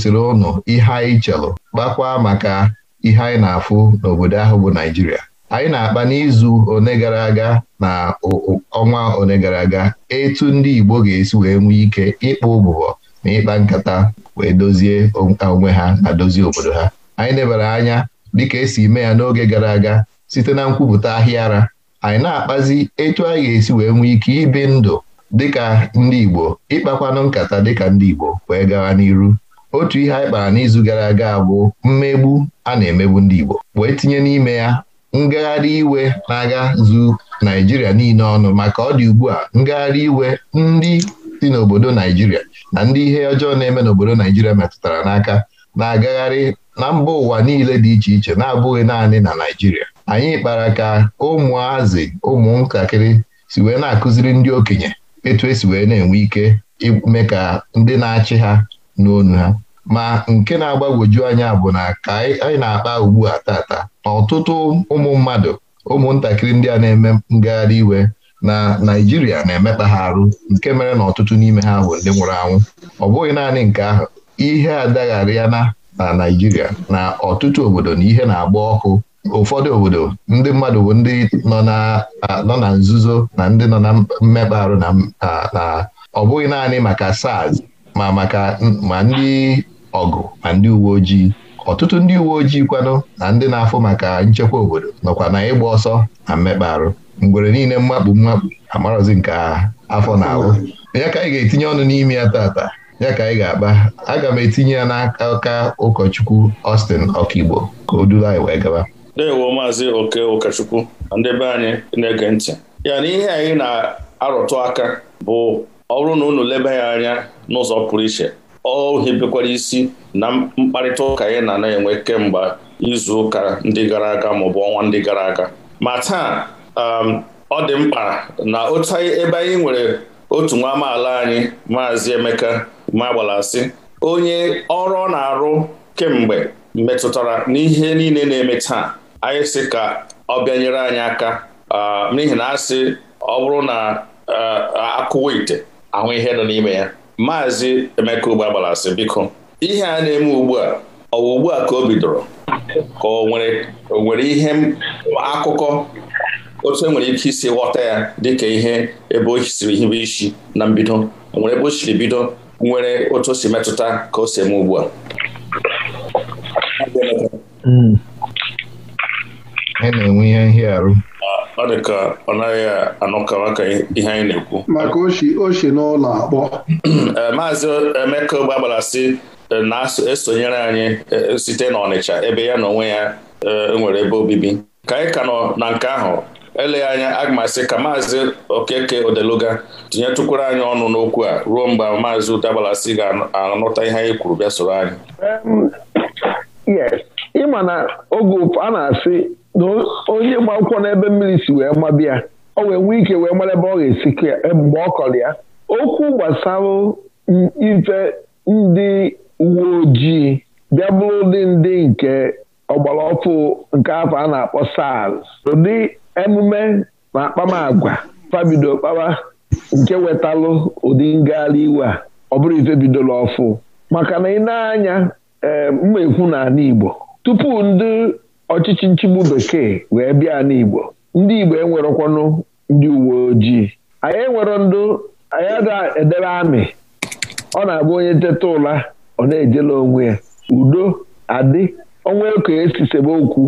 gosiri ụnụ ihe anyị chelụ kpakwa maka ihe anyị na-afụ n'obodo ahụ bụ Naijiria anyị na-akpa n'izu one gara aga na ọnwa one gara aga etu ndị Igbo ga-esi wee nwee ike ịkpa ụbụbọ na ịkpa nkata wee dozie onwe ha na dozie obodo ha anyị nebara anya dịka esi mee ya n'oge gara aga site na nkwupụta ahịa ara anyị na-akpazi etu anyị ga-esi wee nwee ike ibi ndụ dịka ndị Igbo ịkpakwanụ nkata dịka ndị Igbo wee gawa n'iru otu ihe anyị kpara n'izu gara aga bụ mmegbu a na-emegbu ndị Igbo wee tinye n'ime ya ngagharị iwe na-aga zu naijiria niile ọnụ maka ọ dị ugbu a ngagharị iwe ndị si n'obodo Naijiria na ndị ihe ọjọọ na-eme n'obodo Naijiria metụtara n'aka na-agagharị na mba ụwa niile dị iche iche na-abụghị naanị na naijiria anyị kpara ka ụmụazị ụmụntakịrị si wee na-akụziri ndị okenye etu esi wee na-enwe ike ime ka ndị na-achị ha n'onu ha ma nke na-agbagwoju anya bụ na ka anyị na-akpa ugbu a tata na ọtụtụ ụmụ mmadụ ụmụntakịrị ndị a na-eme ngagharị iwe na Naịjirịa na-emekpa ha arụ nke mere na ọtụtụ n'ime ha bụ ndị nwụrụ anwụ ọ bụghị naanị nke ahụ ihe adagharịa na na Naịjirịa na ọtụtụ obodo na ihe na-agba ọkụ ụfọdụ obodo ndị mmadụ bụ ndị nọ na nzuzo na ndị nọ na mmekpa arụ na ọ bụghị naanị maka SARS ma maka ma ndị ọgụ ma ndị uwe ojii ọtụtụ ndị uwe ojii kwanụ na ndị na-afụ maka nchekwa obodo nọkwa na ịgba ọsọ na mmekpa arụ mgbere niile mmakpu mmakpu amarọzi nke afọ na ahụ ya ka anyị ga-etinye ọnụ n'ime ya tata ya ka anyị ga-akpa aga m etinye ya n'aka ụkọchukwu Austin Ọkigbo ka o duru anyị wee gaba ndewo maazị oke ụkọchukwu na ndị be anyị na-ege ntị ya na ihe anyị na-arụtụ aka bụ ọ bụrụ na unu leba ya anya n'ụzọ pụrụ iche ọ hibekwara isi na mkparịta ụka ya na na-enwe kemgbe izu ụka ndị gara aga maọbụ ọnwa ndị gara aga ma taa um, ọ dị mkpa na otu ebe anyị nwere otu nwa amaala anyị maazị Emeka Magbalasị onye ọrụ ọ na-arụ kemgbe metụtara n'ihe niile na-eme taa anyị sị ka ọ bịanyere anyị aka um, n'ihi na asị ọ bụrụ na uh, akụwa ite ahụ ihe nọ n'ime ya maazị Emeka Ugba gbara biko ihe a na-eme ugbu a ugbu a ka o bidoro ka o nwere ihe akụkọ otu e nwere ike isi ghọta ya dịka ihe ebe o siri hibe isi na mbido nwere ebe o siri bido nwere otu o si metụta ka o si eme ugbu a a hmm. na-enwe ihe nhịarụ ọ dị ka ọ naghị anọkawa ka ihe anyị na-ekwu maka oche n'ụlọ akpọ eh, maazị Emeka gbagbara eh, na-esonyere anyị eh, site n'Ọnịcha ebe ya na onwe ya nwere ebe obibi ka anyị ka nọ na nke ahụ eleghị anya aga ka maazị Okeke Odeluga tinyetụkwara anyị ọnụ n'okwu a ruo mgbe maazị Ute ga-anọta ihe anyị kwuru bịa soro anyị mm. ịma na oge a na-asị na onye gba akwụkwọ n'ebe mmiri si wee mabịa o wee nwee ike wee mara ebe ọ ga-esi e, mgbe ọ kọrọ ya okwu gbasara ife ndị uwe ojii bịa bụrụ ụdị ndị nke ọgbara ọfụ nke afọ a na-akpọ SARS ụdị emume na akpamagwa fabido kpawa nke wetalụ ụdị ngagharị iwe a ọ bụrụ ife bidoro ọfụ maka na ị na-anya ee mma ekwu n'ala Igbo tupu ndị ọchịchị nchigbu bekee wee bịa n'Igbo ndị Igbo enwerekwanụ ndị uwe ojii anyị enwere ndụ anyị ada edebe amị ọ na-abụ onye teta ụla ọ na-ejela onwe ya udo adị ọnwa eko esi sebe okwu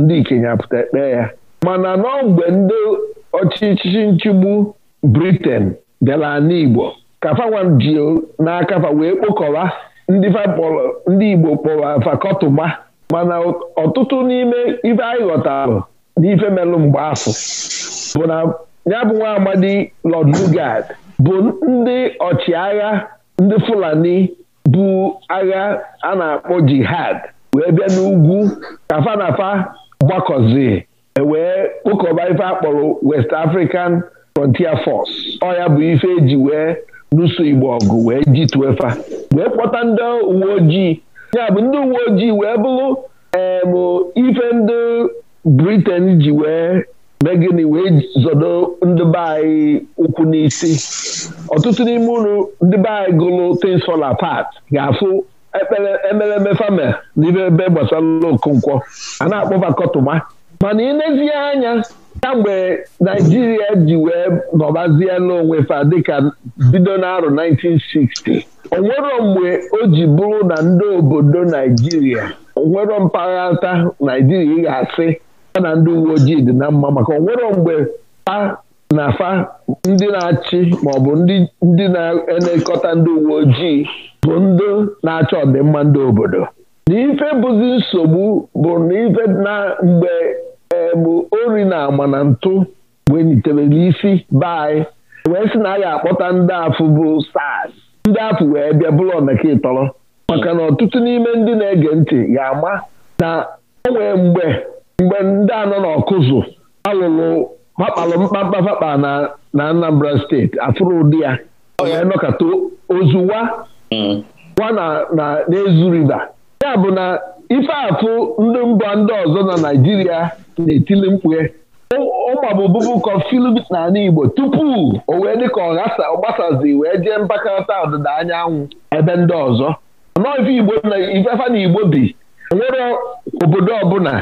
ndị ikenye pụta ekpe ya mana nọọ mgbe ndị ọchịchị nchigbu briten bịara n'Igbo kafawa ji fa wee kpokọba ndị Igbo kpọrọ fakọtụgba mana ọtụtụ n'ime ibe anyị ghọtara n'ife melụ mgbe asụ bụ na ya bụ nwa amadi Lord Lugard bụ ndị ọchịagha ndị Fulani bụ agha a na-akpọ jihad wee bịa n'ugwu ka fanafa gbakọzi e wee kpokọba ife akpọrọ West African Frontier Force ọ ya bụ ife eji wee lụso Igbo ọgụ wee jituefa wee kpọta ndị uwe ojii ya bụ ndị uwe ojii wee bụrụ eebụ ife ndị briten ji wee megini wee zodo ndị be anyị ụkwụ n'isi ọtụtụ n'ime ụlọ ndị be anyị gụrụ tins fall apart ga-afụ ekpere emereme fame n'ime ebe gbasara okonkwo a na-akpọba mana ị nezie anya kamgbe naijiria ji wee nọbazie n'onwe fa dịka bido n'arọ 1960 onwero mgbe o ji bụrụ na ndị obodo naijiria onwero mpaghara naijiria ị ga-asị ya na ndị uwe ojii dị na mma maka onwero mgbe pa na fa ndị na-achị maọbụ ndị na-elekọta ndị uwe ojii bụ ndị na-achọ ọdịmma ndị obodo na ife bụzi nsogbu bụ na ife na mgbe Eh, bụ ori na agba na ntụ wenyitebere isi be anyị wee sị na a ga-akpọta ndị afụ bụ SARS ndị afụ wee bịa bụrụ ọnaka ịtọrọ maka na ọtụtụ n'ime ndị na-ege ntị ga-ama na onwe mgbe mgbe ndị anọ n'ọkụzụ alụrụ makpalụ mkpamkpa fakpa na Anambra steeti afụrụ ụdị ya oh, wee nọkata ozuwa hmm. wa na na n'ezu riva ya bụ na ife afụ ndị mba ndị ọzọ na Naịjirịa na-etili mkpue ụmabụbụbụ na n'ala Igbo tupu o wee dị ka ọ wee jee mpakọta ọdịda anyanwụ ebe ndị ọzọ nọọ ifefa na Igbo bi nwere obodo ọbụla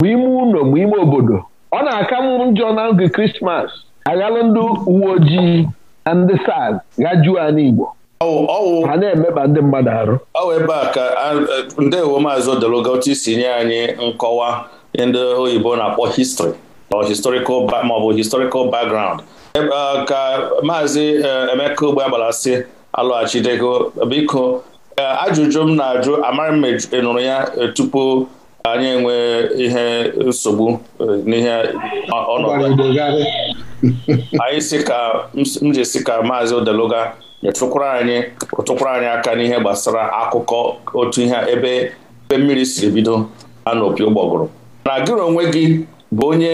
ma ime ụlọ ma ime obodo ọ na-aka njọ na oge Krismas aghalụ ndị uwe ojii na ndị SARS gajuo ala Igbo ha na-emeba ndị mmadụ arụ ọwụ ebe a ka ndewo maazị odelogoti si nye anyị nkọwa ndị oyibo na-akpọ histri or historical maọbụ historical background e, ka maazị e, emeka ogbe agbalasị alọghachidego biko e, ajụjụ m na-ajụ amara m nụrụ ya tupu anyị enwe ihe nsogbu n'ihe ọnọdụ anyị si ka m ji si ka maazị odeloga nyetụkwara anyị ụtụkwara anyị aka n'ihe gbasara akụkọ otu ihe ebe ebe mmiri siri bido ana opi ụgbọgụrụ na gịrị onwe gị bụ onye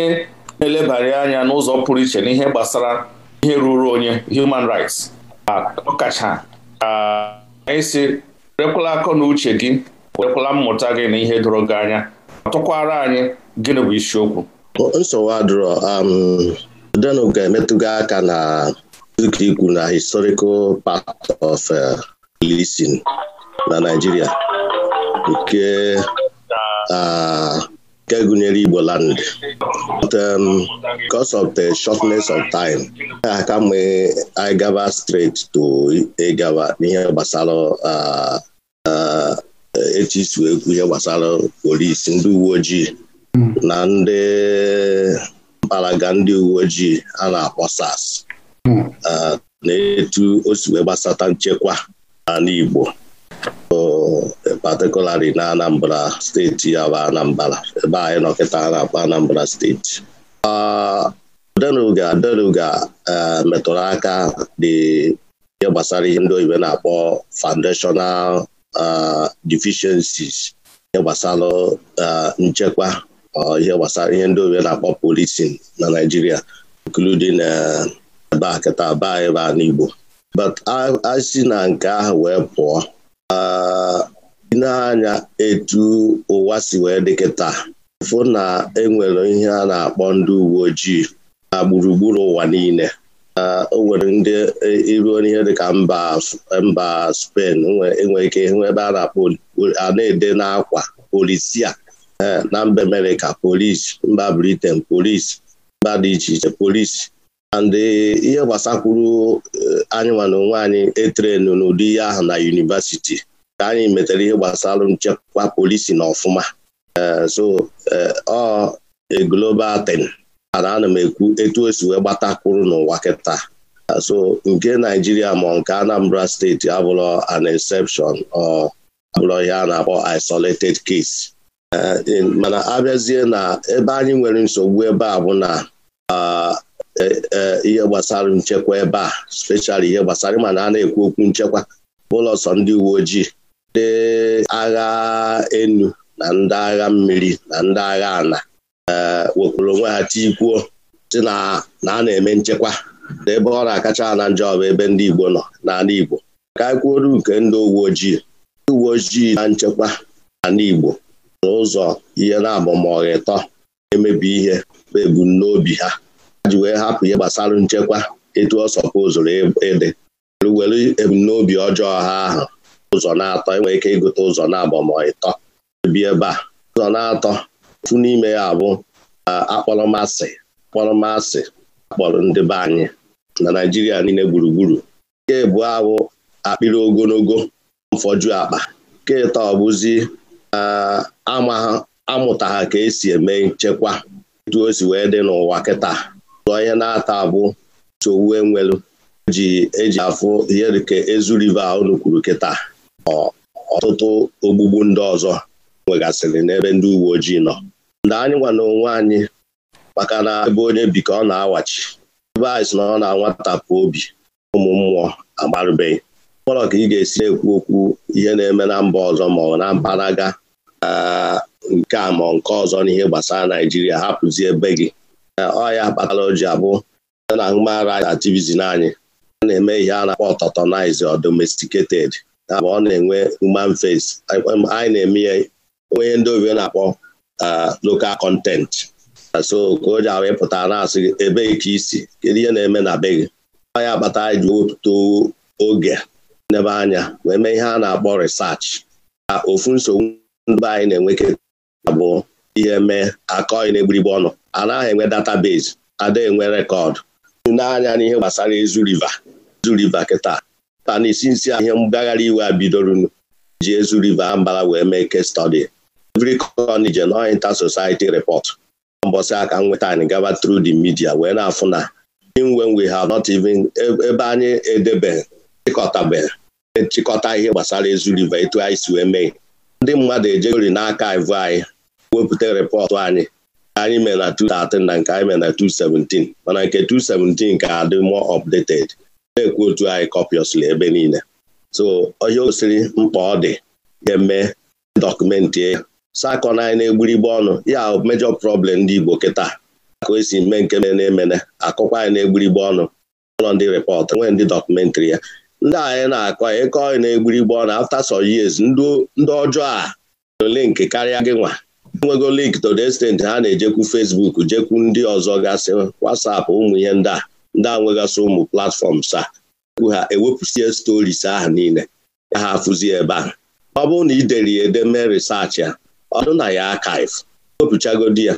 na-elebara anya n'ụzọ pụrụ iche n'ihe gbasara ihe ruru onye human rights ọkacha isi werekwala akọ na uche gị werekwala mmụta gị na ihe doro gị anya ọtụkwara anyị gịnị bụ isiokwu nsogbu adụrọ um ga-emetụga aka na dị ikwu na historical part of policing uh, na Nigeria nke uh, nke gụnyere Igbo land but um, because of the shortness of time a ka mgbe anyị gaba straight to ịgaba n'ihe gbasara uh, etu isi wee kwu ihe gbasara polisi ndị uwe ojii hmm. na ndị mpalaga ndị uwe ojii a na-akpọ sas na etu o si wee gbasata nchekwa ala Igbo patikulari na Anambra steeti ya bụ Anambra ebe anyị nọkịta na-akpọ Anambra steeti Denuga Denuga e, metụrụ aka dị ihe gbasara ihe ndị oyibo na-akpọ foundational e, deficiencies ihe gbasara e, nchekwa ihe gbasara ihe ndị oyibo na-akpọ policing na Nigeria na-akịta be ebe a n'Igbo but a na nke ahụ wee pụọ ah, anya etu ụwa si wee dị kịta fụ na enwere ihe a na-akpọ ndị uwe ojii na gburugburu ụwa niile ah, o nwere ndị e, iruo n'ihe dịka mba spen enwe e ike ebe a na-akpọ a na-ede n'akwa polisia eh, na mba Amerịka polisi mba Britain polisi mba dị iche iche polisi and eh, ihe gbasakwuru eh, anyị na onwe anyị n'ụdị ihe ahụ na yunivasiti ka anyị metere ihe gbasara nchekwa polisi na ọfụma eh, so ọ global ten ana ana m ekwu etu o wee gbatakwuru n'ụwa kịta so nke naijiria ma nke anambra steeti abụrọ an exception abụrọ ihe na-akpọ isolated case mana abịazie na ebe anyị nwere nsogbu ebe a bụ na ah, Eh, eh, ihe gbasara nchekwa ebe a speshal ihe gbasara ịma na a na-ekwu okwu nchekwa ụlọ ndị uwe ojii ndị agha enu na ndị agha mmiri na ndị agha ana eh, wepụrụ onwe ha tikwuo si na a na-eme nchekwa na ebe ọ na-akacha na njọ bụ ebe ndị Igbo nọ n'ala Igbo ka anyị e kwuoru nke ndị uwe ojii ndị uwe ojii na nchekwa n'ala Igbo n'ụzọ ihe na na emebi ihe bụ ebumnobi ha ji wee hapụ ihe gbasara nchekwa etu ọ sọpụzụrụ ịdị e, were ebumnobi ọjọọ ha ahụ ụzọ na-atọ enwere ike ịgụta ụzọ na-abọ ma ịtọ bi ebe a ụzọ na-atọ ofu n'ime ya bụ akpọrọmasị akpọrọmasị akpọrọ ndị be anyị na Naịjirịa niile gburugburu nke bụ ahụ akpịrị ogologo mfọju akpa nke ịtọ ọbụzi amụta ha ka esi eme nchekwa etu o si wee dị n'ụwa kịta onye na-ata abụ nsogbu enwelu ji eji afụ ihe dịka ezu rive unu kwuru kịta ọtụtụ ogbugbu ndị ọzọ nwegasịrị n'ebe ndị uwe ojii nọ ndị anyị gwa na onwe anyị maka na ebe onye bi ka ọ na-awachi ebe anyị si na ọ na-anwatapụ obi ụmụ mmụọ agbarụbeghị mkpọrọ ka ị ga-esi ekwu okwu ihe na-eme na mba ọzọ ma ọ na mpanaga nke a ma nke ọzọ n'ihe gbasara Naijiria hapụzie ebe gị ọya kpatara o ji abụ na human rights anyị a na-eme ihe a na-akpọ ọtọtọnize or domesticated abụ ọ na-enwe human face anyị na-eme ya onye ndị obi na-akpọ uh, local content so ka o ji ahụ ịpụta na-asị ebe ka isi kedu ihe na-eme na be gị ọya kpata anyị ji wepụta oge n'ebe anya wee mee ihe a na-akpọ research ka ofu nsogbu ndị anyị na-enweketa bụ ihe mee akọ na-egburigbe ọnụ anaghị enwe database ada enwe rekọdụ n'anya n'ihe gbasara ezu riva ezu riva kịta ta na isi nsi ihe mgbaghara iwe a bidorunu ji ezu River ambara wee mee case study every corner je no inter society report mbọsị aka nweta anyị gaba through di media wee na-afụ na when we have not even ebe anyị edebe chịkọtabeghị chịkọta ihe gbasara ezu River etu anyị si wee mee ndị mmadụ ejegori n'aka ivụ anyị wepụta repọtụ anyị anyị mee na 2013 na nke anyị mee na 2017 mana nke 2017 ka adị mụọ updated na-ekwu otu anyị copiously ebe niile so onye osiri mkpa ọ dị ga-eme dọkụmentị ya sakọ na anyị na-egburigbe ọnụ ya mejọ prọblem ndị Igbo kịta ka esi mee nke mere na-emene akụkwa anyị na-egburigbe ọnụ ụlọ ndị repọt nwee ndị dọkụmentịrị ya ndị anyị na-akọ ịkọ anyị na-egburigbe ọnụ after some years ndị ọjọọ a ole nke karịa gị nwa nwegolo to the extent ha na-ejekwu Facebook jekwu ndị ọzọ gasị WhatsApp ụmụ ihe ndị a ndị a nwegasị ụmụ platfọms a ha ewepụsie stories ahụ niile ya ha afụzie ebe ahụ ọ bụrụ na ideri dere ya ede mee research ya ọdụ na ya archive wepụchagodi ya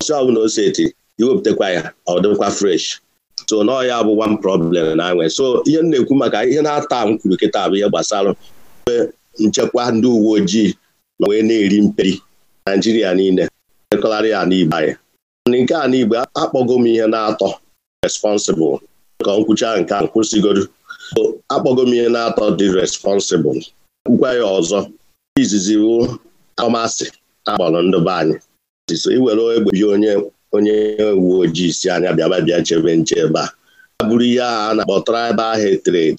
ọsị ọbụla oseti iwepụtakwa ya ọ dịkwa fresh so nọọ ya bụ one problem na anwe so ihe na-ekwu maka ihe na-ata m kwuru kịta bụ ihe gbasara nchekwa ndị uwe ojii na wee na-eri mperi naijiria niile ekọgharị ya n'igbe anyị nke a n'igbe akpọgo m ihe na-atọ responsible ka nkwucha nke a kwụsịgoro akpọgo m ihe na-atọ dị responsible nkwa ya ọzọ izizi bụ akọmasị agbalụ ndị be anyị iwere egbe bi onye onye uwe ojii si anya bịaba bịa chebe nche ebe a a bụrụ ihe a na-akpọ tribal hetred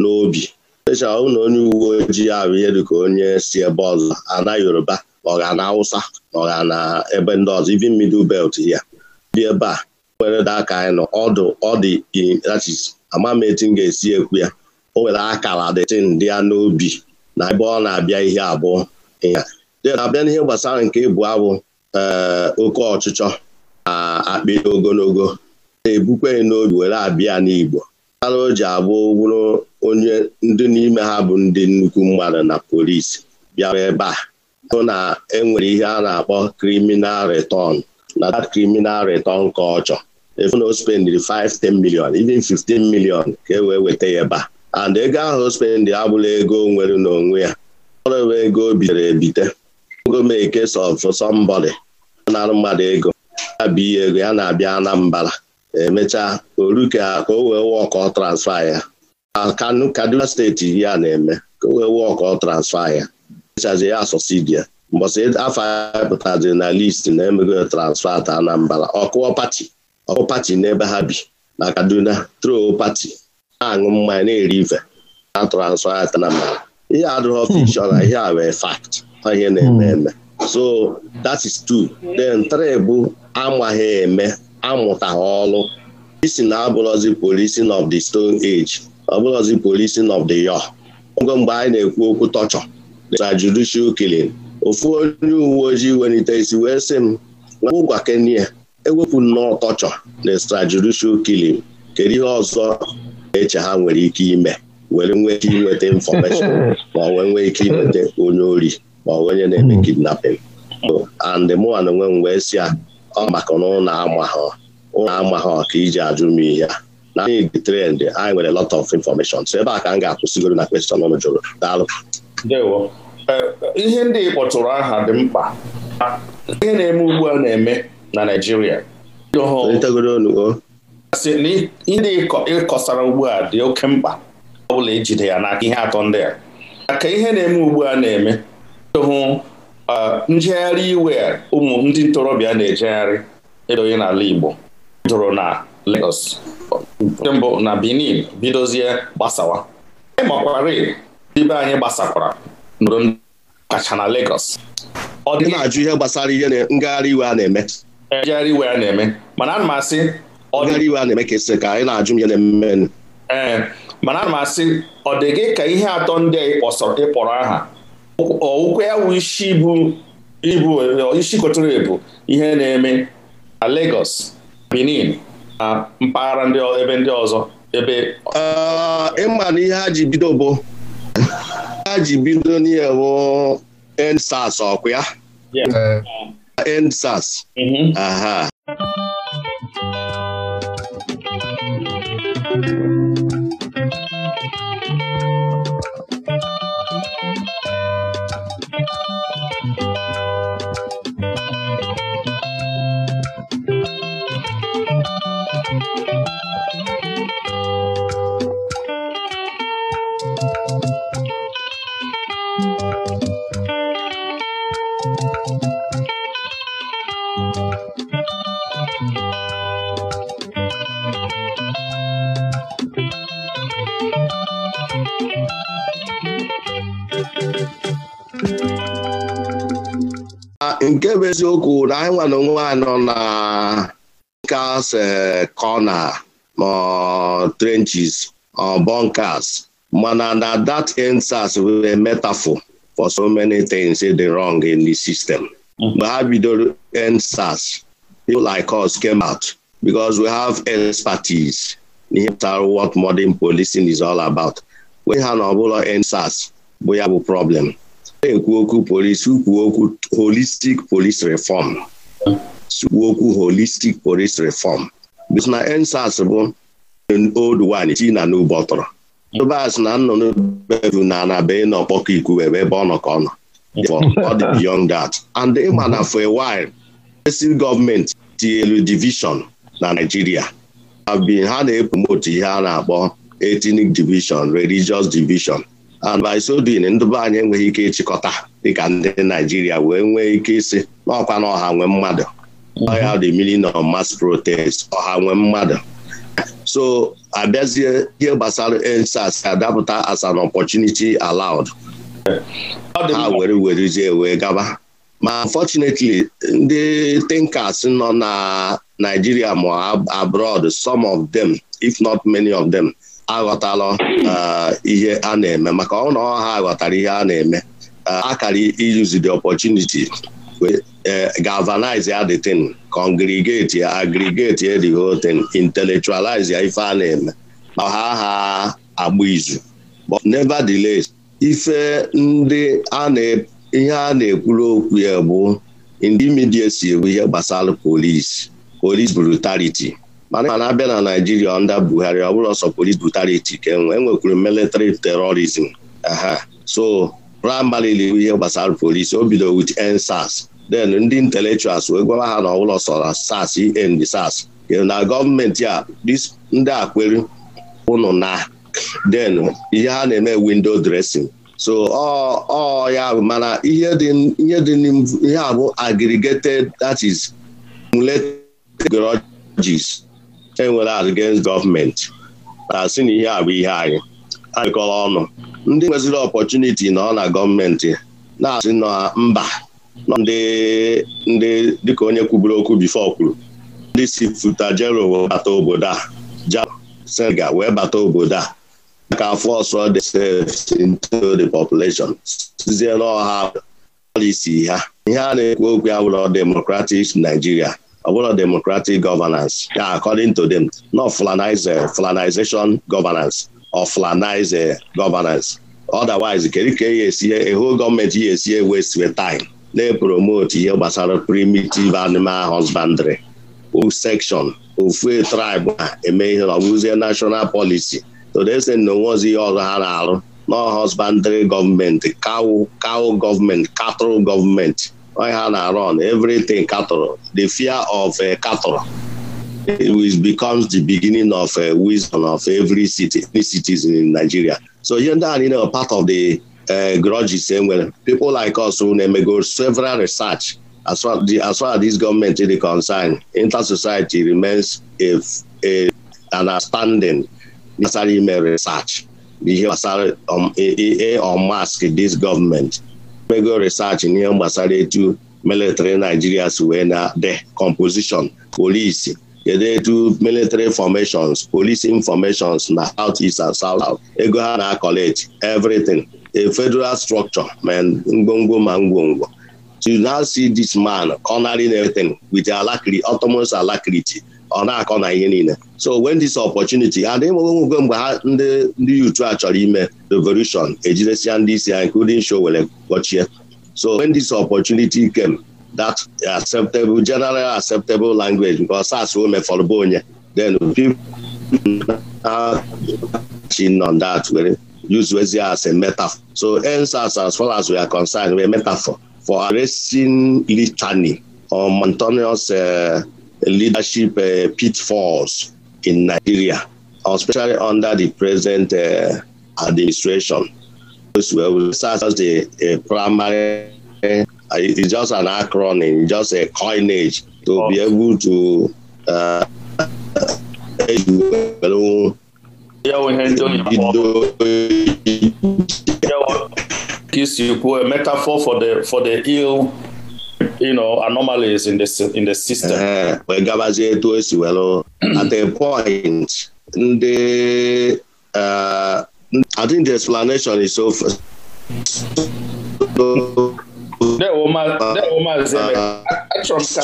n'obi echa na onye uwe ojii ahụ ihe dịka onye si ebe ọzọ ana Yoruba Ọ ga na na ebe ndị ọzọ ivin middle belt ya dị ebe a nwere aka anyị nọ ọdụ ọ dị inachis ama ga-esi ekwu ya o nwere akara dịtin dị ya n'obi na ebe ọ na-abịa ihe abụọ ya na-abịa n'ihe gbasara nke ịbụ abụ eh, oke ọchịchọ na akpị ogologo na-ebukwe n'obi were abịa n'Igbo ara o ji abụ bụrụ onye ndị n'ime ha bụ ndị nnukwu mmadụ na polisi bịara ebe a bụ na enwere ihe a na-akpọ criminal return na that criminal return ka ọ chọ efu na o spendiri 5 10 million even 15 million ka e wee weta ya ebe a and ego ahụ o spendị abụla ego nwere n'onwe ya ọ bụ ego bitere ebite gomeke sọf sọmbọdị na mmadụ ego abụ ihe ego ya na-abịa Anambra emechaa oruka ka o wee wọkọ transfa ya Kaduna steeti ya na-eme ka o wee wọkọ transfa ya echazi ya asọsidia mbọsị e, afọ a pụtaziri na listi na-emego transfa ta Anambra ọkụọ pati ọkụ pati n'ebe ha bi na Kaduna tro pati na-aṅụ mmanya na-eri ife na transfa Anambra ihe adịghị fikshọn ihe a wee fakt ihe na-eme eme so that is two then three bụ amaghị eme amụta ọrụ isi na abụrọzi policing of the stone age ọ bụrọzi policing of the yo ogo mgbe anyị na-ekwu okwu tọchọ na judicial killing ofu onye uwe ojii welite isi wee sị m ngwa kenya ewepụ nnọọ ọtọchọ na extrajudicial killing kedu ihe ọzọ eche ha nwere ike ime were nwee ike inweta infọmeshọn ma wee nwee ike inweta onye ori ma onye na-eme hmm. kidnapping and mụana onwe m wee si a ọ maka na ụlọ ama ha ka iji ajụ m ihe a na anyị dị trend anyị nwere lot of information so ebe a ka m ga-akwụsịgoro na question ọnụ jụrụ daalụ ndewo eh, ihe ndị kpọtụrụ aha dị mkpa ihe na-eme ugbu a na-eme na Naịjirịa ihe ndị ịkọsara ugbu a dị oke mkpa ọ bụla ijide e ya n'aka ihe atọ ndị a maka ihe na-eme ugbu a na-eme hụ eh, njegharị iwe ụmụ ndị ntorobịa na-ejegharị edoghị n'ala Igbo bidoro na Lagos nke mbụ na Benin bidozie gbasawa ịmakwara ibe anyị gbasakwara nụrụ kacha na Lagos ọ dị na-ajụ ihe gbasara ihe ngagharị iwe a na-eme ngagharị iwe a na-eme mana ana m asị ngagharị iwe a na-eme ka esi ka anyị na-ajụ ihe na-eme ee mana ana m asị ọ dị gị ka ihe atọ ndị a ịkpọrọ aha ụkwụ ya wụ isi bụ ibu isi kotoro ebu ihe na-eme na Lagos Benin na mpaghara ebe ndị ọzọ ebe ịma na ihe ha ji bido bụ a ji bido n'ihe endsas ọkwa ya endsas eh. mm-hmm. aha Ah, nke bụ eziokwu na anyị nwa na onwe nọ na eh, car's kọna ma trenches or bunkers mana na that endsars were a metaphor for so many things dị wrong in the system mgbe ha bidoro endsars people like us came out because we have expertise n'ihe pụtara what modern policing is all about we ha na ọbụla ensas bụ ya bụ problem na-ekwu okwu polisi kwuo okwu holistic police reform kwuo okwu holistic police reform because na ensas bụ old one chi na n'ugbo tọrọ tụbas na nnụnụ bevu na na be nọ kpọkọ ikwu ebe ebe ọ nọ ka ọ nọ ọ dị beyond that and ịma na for a while esi gọọmenti tinyelu division na Nigeria ha na-epromote ihe a na-akpọ ethnic division religious division and by so doing ndụba be anyị enweghị ike ịchịkọta dịka ndị Naijiria wee nwee ike isi n'ọkwa na ọha nwee mmadụ ọha the million of mass protest ọha nwee mmadụ so abịazie ihe gbasara EndSARS adapụta as an opportunity allowed ha were werezie wee gaba ma unfortunately ndị tinkers nọ na Naijiria ma abroad some of them if not many of them aghọtala uh, ihe a na-eme maka ọ na ha ghọtara ihe a na-eme uh, akara use the opportunity uh, galvanize ya the thing congregate ya aggregate ya the whole ya ife a na-eme ma ha ha agba izu but nevertheless ife ndị ihe a na-ekwuru okwu ya bụ ndị midia si ewu ihe gbasara polisi police brutality mana abịa na naijiria ọnda buhari ọ bụrụ ọsọ polis brutality ka enwe enwekwuru military terrorism aha so primarily ihe gbasara polisi o bido with ensas ndị intellectuals wee gwawa ha na ọ ọsọ na sas end sas na gọọmenti a ndị a kwere ụnụ na then ihe ha na-eme window dressing so ọ ya mana ihe dị ihe abụ aggregated that is multiple ideologies enwere against gọọmenti na si na ihe a bụ ihe anyị anyịkọrọ ọnụ ndị nweziri ọpọchuniti nọ na gọọmenti na-asị na mba ndị ndị dịka onye kwuburu okwu bifo kwuru ndị si futa wee bata obodo a ja Senegal wee bata obodo a aka afọ ọsọ themselves into the population sizie n'ọha policy ha ihe a na-ekwu okwu ya bụrụ democratic Nigeria ọ bụrụ democratic governance ya according to them not flanize eh, flanization governance or flanize eh, governance otherwise kedu ka e e, ya esi ehu gọọmenti ya esi waste time na-epromote ihe gbasara primitive animal husbandry section ofu tribe na-eme ihe ọbụzie national policy todese na onwezi ihe ọzọ ha na-arụ na husbandry gọọmenti cow cow gọọmenti cattle gọọmenti on-hand na-arọn everything katọrọ the fear of katọrọ eh, it becomes the beginning of uh, wisdom of every city every citizen in Nigeria so ihe ndị a niile part of the uh, grudges e nwere people like us who na-emego several research as far, as far as this government is concerned inter-society remains a, a, an outstanding necessary ime research ihe gbasara um, e, e, e, mask this government mego research n'ihe gbasara etu military Nigeria si wee na de composition polisi kedu etu military formations police informations na south east and south south ego ha na College. everything a federal structure ma ngwongwo ma ngwongwo to now see this man cornering everything with alacrity alacrity ọ na-akọ na ihe niile so when this opportunity and ịmụwe nwekwe mgbe ha ndị ndị yutu a chọrọ ime revolution ejidesia ndị isi ha including show were gọchie so when this opportunity came that acceptable general acceptable language nke ọsas omefọrọ bụ onye then people chin on that were use wezi as a metafor. so ensas as far as we are concerned were metafor for arresting litany or mountainous uh, leadership uh, pitfalls in Nigeria, especially under the present uh, administration. will such as the a uh, primary, uh, it's just an acronym, just a coinage to oh. be able to. Uh, is you a metaphor for the for the ill you know, anomalies in the, in the system. Eh, wee gabazie etu esi were at a point ndị eh, I think the explanation is so achọrọ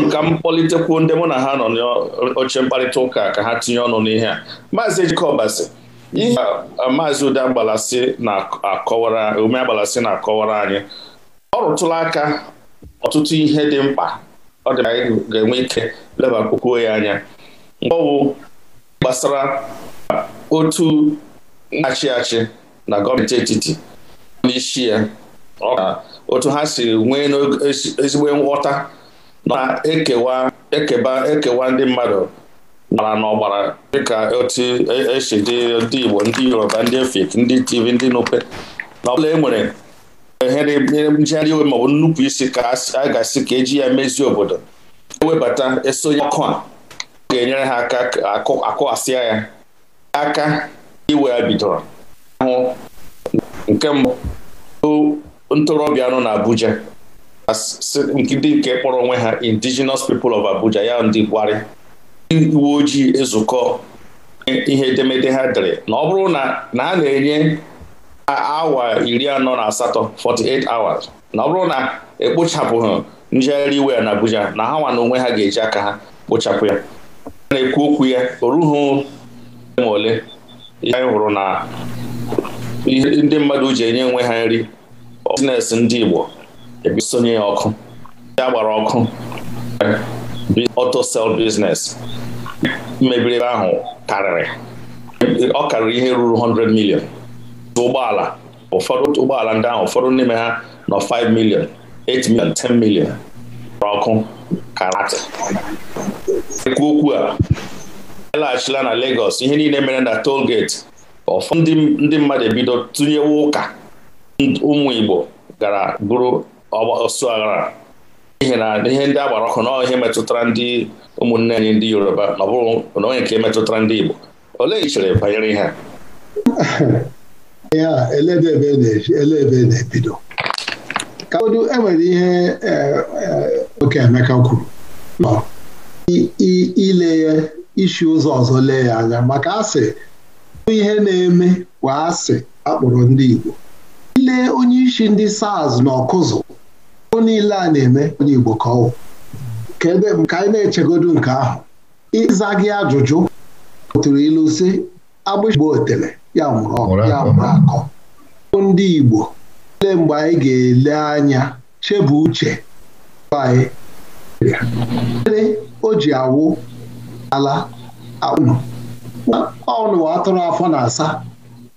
m ka m kpọlitekwuo ndị mụ na ha nọ n'oche mkparịta ụka ka ha tinye ọnụ n'ihe a maazị Ejikọbasị ihe maazị Ude Agbalasi na-akọwara ume Agbalasị na-akọwara anyị ọrụtụla aka ọtụtụ ihe dị mkpa ọ dị anyị ga-enwe ike lebakwukwuo ya anya ọ bụ gbasara otu na-achị achị na gọọmenti etiti n'isi ya otu ha si nwee n'ezigbo nghọta na-ekewa ekeba ekewa ndị mmadụ mara dị dịka otu esi e dị ndị Igbo ndị Yoruba ndị Efik ndị tv ndị e nwere njegharị iwe maọbụ nnupụ isi ka a ga-asị ka eji ya mezie obodo ewebata esonye ọkụ a ga-enyere ha aka asịa ya aka iwe ya bidoro ahụ nke mbụ ntorobịa nọ na Abuja ndị nke kpọrọ onwe ha indigenous people of Abuja ya ndị gwari uwe ojii ezukọ ihe edemede ha dere na ọ bụrụ na a na-enye awa iri anọ na asatọ 48 hours na ọ bụrụ na ekpochapụghị njegharị iwe na Abuja na ha nwa na onwe ha ga-eji aka ha kpochapụ ya na-ekwu okwu ya o rughị ma ole ihe anyị hụrụ na ndị mmadụ ji enye onwe ha nri biznes ndị Igbo ebisonye ya ọkụ ya gbara ọkụ auto sell business mebiri ebe ahụ karịrị ọ karịrị ihe ruru 100 million ụgbọala ụfọdụ ụgbọala ndị ahụ ụfọdụ n'ime ha nọ 5 million 8 million 10 million ọkụ karate ekwu okwu a e laghachila na Lagos ihe niile mere na toll gate ndị mmadụ ebido tụnyewe ụka ụmụ Igbo gara bụrụ ọsụ aghara n'ihi na ihe ndị agbara ọkụ na ihe metụtara ndị ụmụnne anyị ndị Yoruba na ọ bụrụ na onye nke metụtara ndị Igbo olee ichere banyere ihe a E ihe a ele ebe na-ebido e enwere ihe oke Emeka kwuru ile ya isi ụzọ ọzọ lee ya anya maka asị ihe na-eme kwa asị akpọrọ ndị Igbo ile onye isi ndị SARS na ọkụzụ ụ niile a na-eme onye Igbo ka ọ ka anyị na-echegodu nke ahụ ịza gị ajụjụ tụrụ ilu si agbụgbo otele ya nwụrụ akọ ndị Igbo ele mgbe anyị ga-ele anya bụ uche anyị ere o ji awụ ala aụnụ ọnụ atụrụ afọ na asa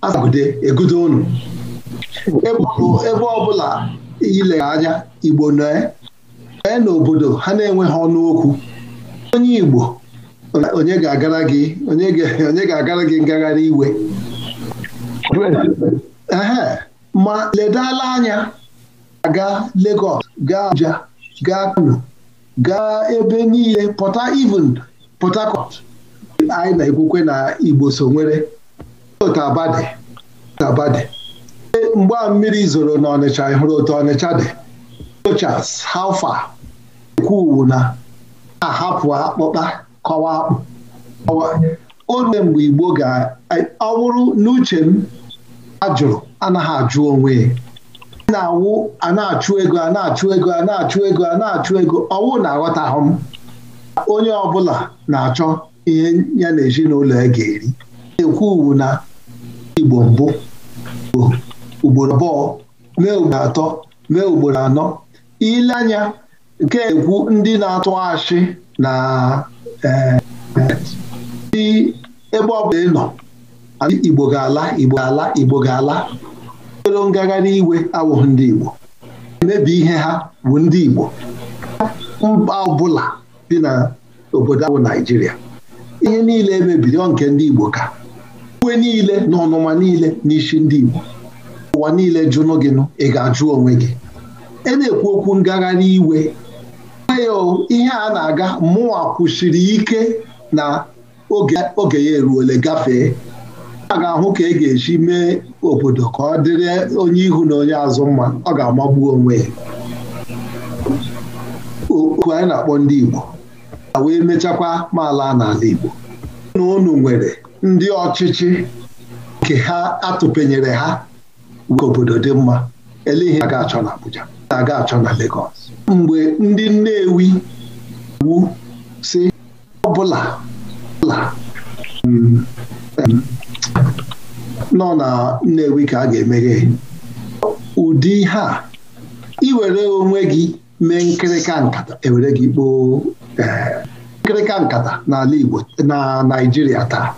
asagide egudo ụnụ ebe ọbụla ile anya Igbo nọe e n'obodo ha na-enweghị ọnụ okwu onye Igbo onye ga-agara gị onye ga-agara gị ngagharị iwe ehe ma ledala anya ga Lagos gaa Abuja gaa Kano gaa ebe niile pọta even Port Harcourt anyị na-ekwukwe na Igbo so nwere Tabade Tabade mgbe a mmiri zoro na Ọnịcha hụrụ otu Ọnịcha dị Rochas Alfa ekwuwu na ahapụ akpụkpa kọwa akpụ o rue mgbe Igbo ga-ọ bụrụ n'uche m a jụrụ anaghị ajụ onwe na-awụ a na-achụ ego a na-achụ ego a na-achụ ego a na-achụ ego ọwụ na-aghọtahụ m onye ọbụla na-achọ ihe ya na ezinụlọ ya ga-eri na-ekwu uwu na igbo mbụ ugboro abụọ mee ugboro atọ mee ugboro anọ ile anya nke ekwu ndị na-atụ ashị na eh, ebe ọ bụla ị nọ Igbo ga-ala Igbo ga-ala Igbo ga-ala ero ngagharị iwe awụghị ndị Igbo emebi ihe ha bụ ndị Igbo mba ọbụla dị na obodo ahụ Naijiria. ihe niile emebiri ọ nke ndị Igbo ka uwe niile na ọnụma niile n'isi ndị Igbo ụwa niile jụnụ gị nụ ị ga-ajụ onwe gị e na-ekwu okwu ngagharị iwe ihe a na-aga mụnwa kwụsiri ike na oge ya eruole gafee a ga-ahụ ka e ga-eji mee obodo ka ọ dịrị onye ihu na onye azụ mma ọ ga-amagbu onwe ya okwu anyị na-akpọ ndị Igbo a wee mechakwa maala n'ala Igbo na unu nwere ndị ọchịchị nke ha atụpenyere ha ka obodo dị mma ele ihe aga achọ na Abuja aga achọ na Lagos mgbe ndị Nnewi wu si ọbụla ọbụla mm, mm, nọ na Nnewi ka a ga-emeghe ụdị ha iwere onwe gị mee nkịrịka nkata ewere gị kpoo e, nkịrịka nkata n'ala Igbo na Naịjirịa taa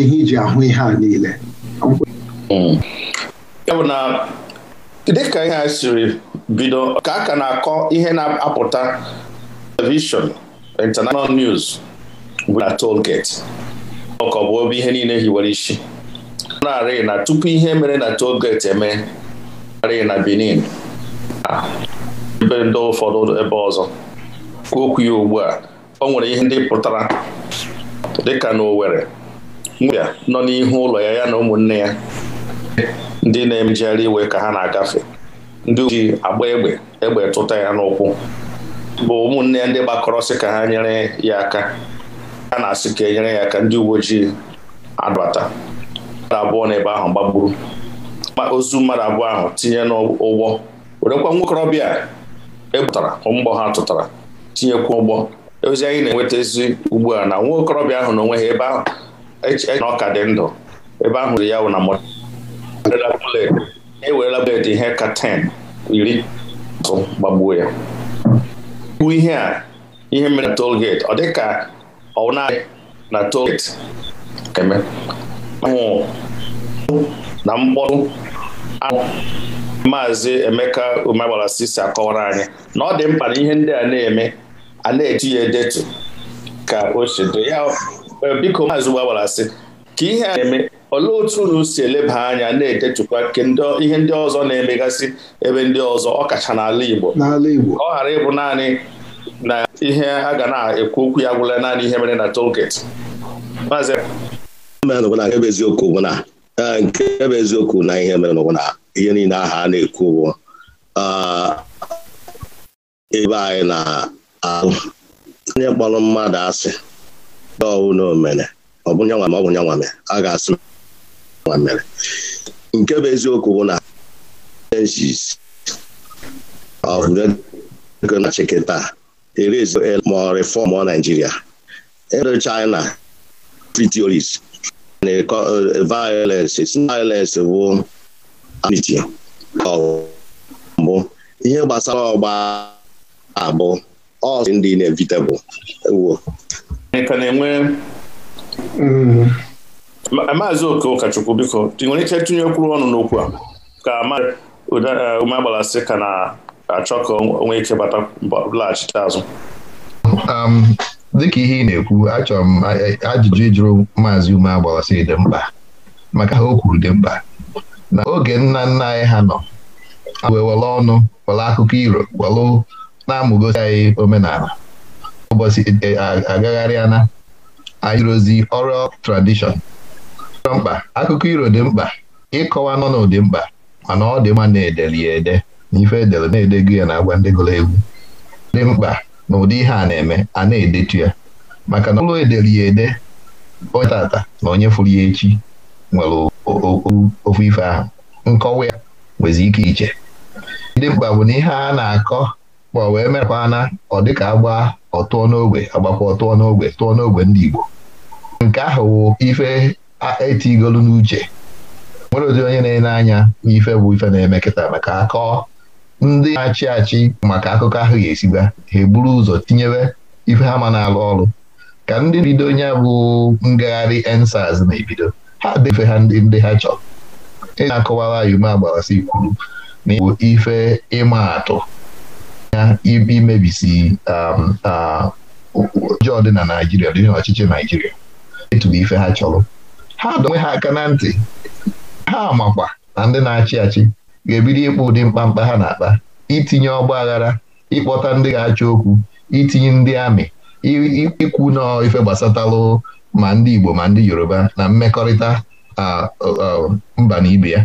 ihe iji ahụ ihe a niile ya hmm. bụ na dịka ihe a siri bido ka a ka na-akọ ihe na-apụta telivishọn international news bụ na toll ọkọ bụ obi ihe niile hiwere isi narị na tupu ihe mere na tolgeti eme narị na Benin ah, ebe ndị ụfọdụ ebe ọzọ okwu ya ugbu a o nwere ihe ndị pụtara dịka na Owerri nwebịa nọ n'ihu ụlọ ya ya na ụmụnne ya ndị na-emejegharị iwe ka ha na-agafe ndị ji agba egbe egbe tụta ya n'ụkwụ bụ ụmụnne ya ndị gbakọrọsị ka ha nyere ya aka a na-asị ka e nyere ya aka ndị uwe ojii adbata mmadụ abụọ n'ebe ahụ gbagburu ozu mmadụ abụọ ahụ tinye n'ụgbọ werekwa nwokorobịa ebutara mgbọ ha tụtara tinyekwa ụgbọ ozi anyị na-enweta ezi ugbu a na nwa okorobịa ahụ n'onwe onwe ha ebe ahụ eche na ọka dị ndụ ebe ahụ ri ya wụ na ewerela bulet ihe ka 10 iri tụ gbagbuo ya bụ ihe a ihe mere na tolgeti ọ dịka ọ na na na mkpọrụ maazị Emeka Umegbara si akọwara anyị na ọ dị mkpa na ihe ndị a na-eme a na-eji ya edetu ka o si dị ya e, biko maazị Umegbara ka ihe a na-eme olee otu unu si eleba anya na-edetukwa ihe ndị ọzọ na-emegasị ebe ndị ọzọ ọkacha n'ala Igbo ọ ghara ịbụ naanị na ihe a ga na-ekwu okwu ya gwụla naanị ihe mere na toll gate maazị mere n'ụgwụ na nke bụ eziokwu bụ na e, nke bụ eziokwu na ihe mere n'ụgwụ na ihe niile aha a na-ekwu bụ ebe anyị na-alụ onye kpọrọ mmadụ asị dọwụ na omere ọ bụ nyanwa ma ọ bụ nyanwa mere a ga-asị nwa mere nke bụ eziokwu bụ na ego na-achịkị taa erezi ma ọ rịfọm Naijiria ero China free violence violence bụ amiti ihe gbasara ọgba abụ ọ ndị inevitable ewo na-enwe maazị oke ụkọchukwu biko ị nwere ike tụnyekwuru ọnụ n'okwu a ka ume agbalasị ka na-achọ ka onwe ike bata laghachite azụ dịka ihe ị na-ekwu achọrọ m ajụjụ ịjụrụ maazị ume agbawasị dị mkpa maka ha o kwuru dị mkpa na oge nna nna anyị ha nọ wee ọnụ were akụkọ iro were na-amụgosi anyị omenala ụbọchị e, agagharịa na anyịrozi oral tradishọn mkpa akụkọ iro dị mkpa ịkọwa n'ọnụ dị mkpa mana ọ dị mma na-edeli ya ede na ife edere na-edego ya na agwa ndị gụrụ egwu dị mkpa na ụdị ihe a na-eme a na-edetu ya maka na ụlọ ederi ya ede onye tata na onye furu ya echi nwere ofu ife ahụ nkọwa ya nwezi ike iche ndị mkpa bụ na ihe a na-akọ ma wee merekwa na ọ dịka agba ọtụọ n'ogbe agbakwa ọtụọ n'ogbe tụọ n'ogbe ndị Igbo nke ahụ wụ ife etigolu n'uche nwere ụdị onye na-ele anya n'ife bụ ife na-eme kịta maka akọ ndị na-achị achị maka akụkọ ahụ ga-esiba ha eburu ụzọ tinyere ife ha ma na-alụ ọrụ ka ndị bido onye bụ ngagharị ensaz na-ebido ha defe ha ndị ndị ha chọrọ ị na-akọwara yume agbarasi kwuru na igbo ife ịma atụ ya imebisi ọjọọ um, dị na Naijiria dị n'ọchịchị Naijiria eturu ife ha chọrọ ha donwe ha aka na ntị ha makwa na ndị na-achị achị ga-ebido ịkpụ ụdị mkpamkpa ha na-akpa itinye ọgba aghara ịkpọta ndị ga-achọ okwu itinye ndị amị ikwu na ife gbasatalụ ma ndị Igbo ma ndị Yoruba na mmekọrịta mba na ibe ya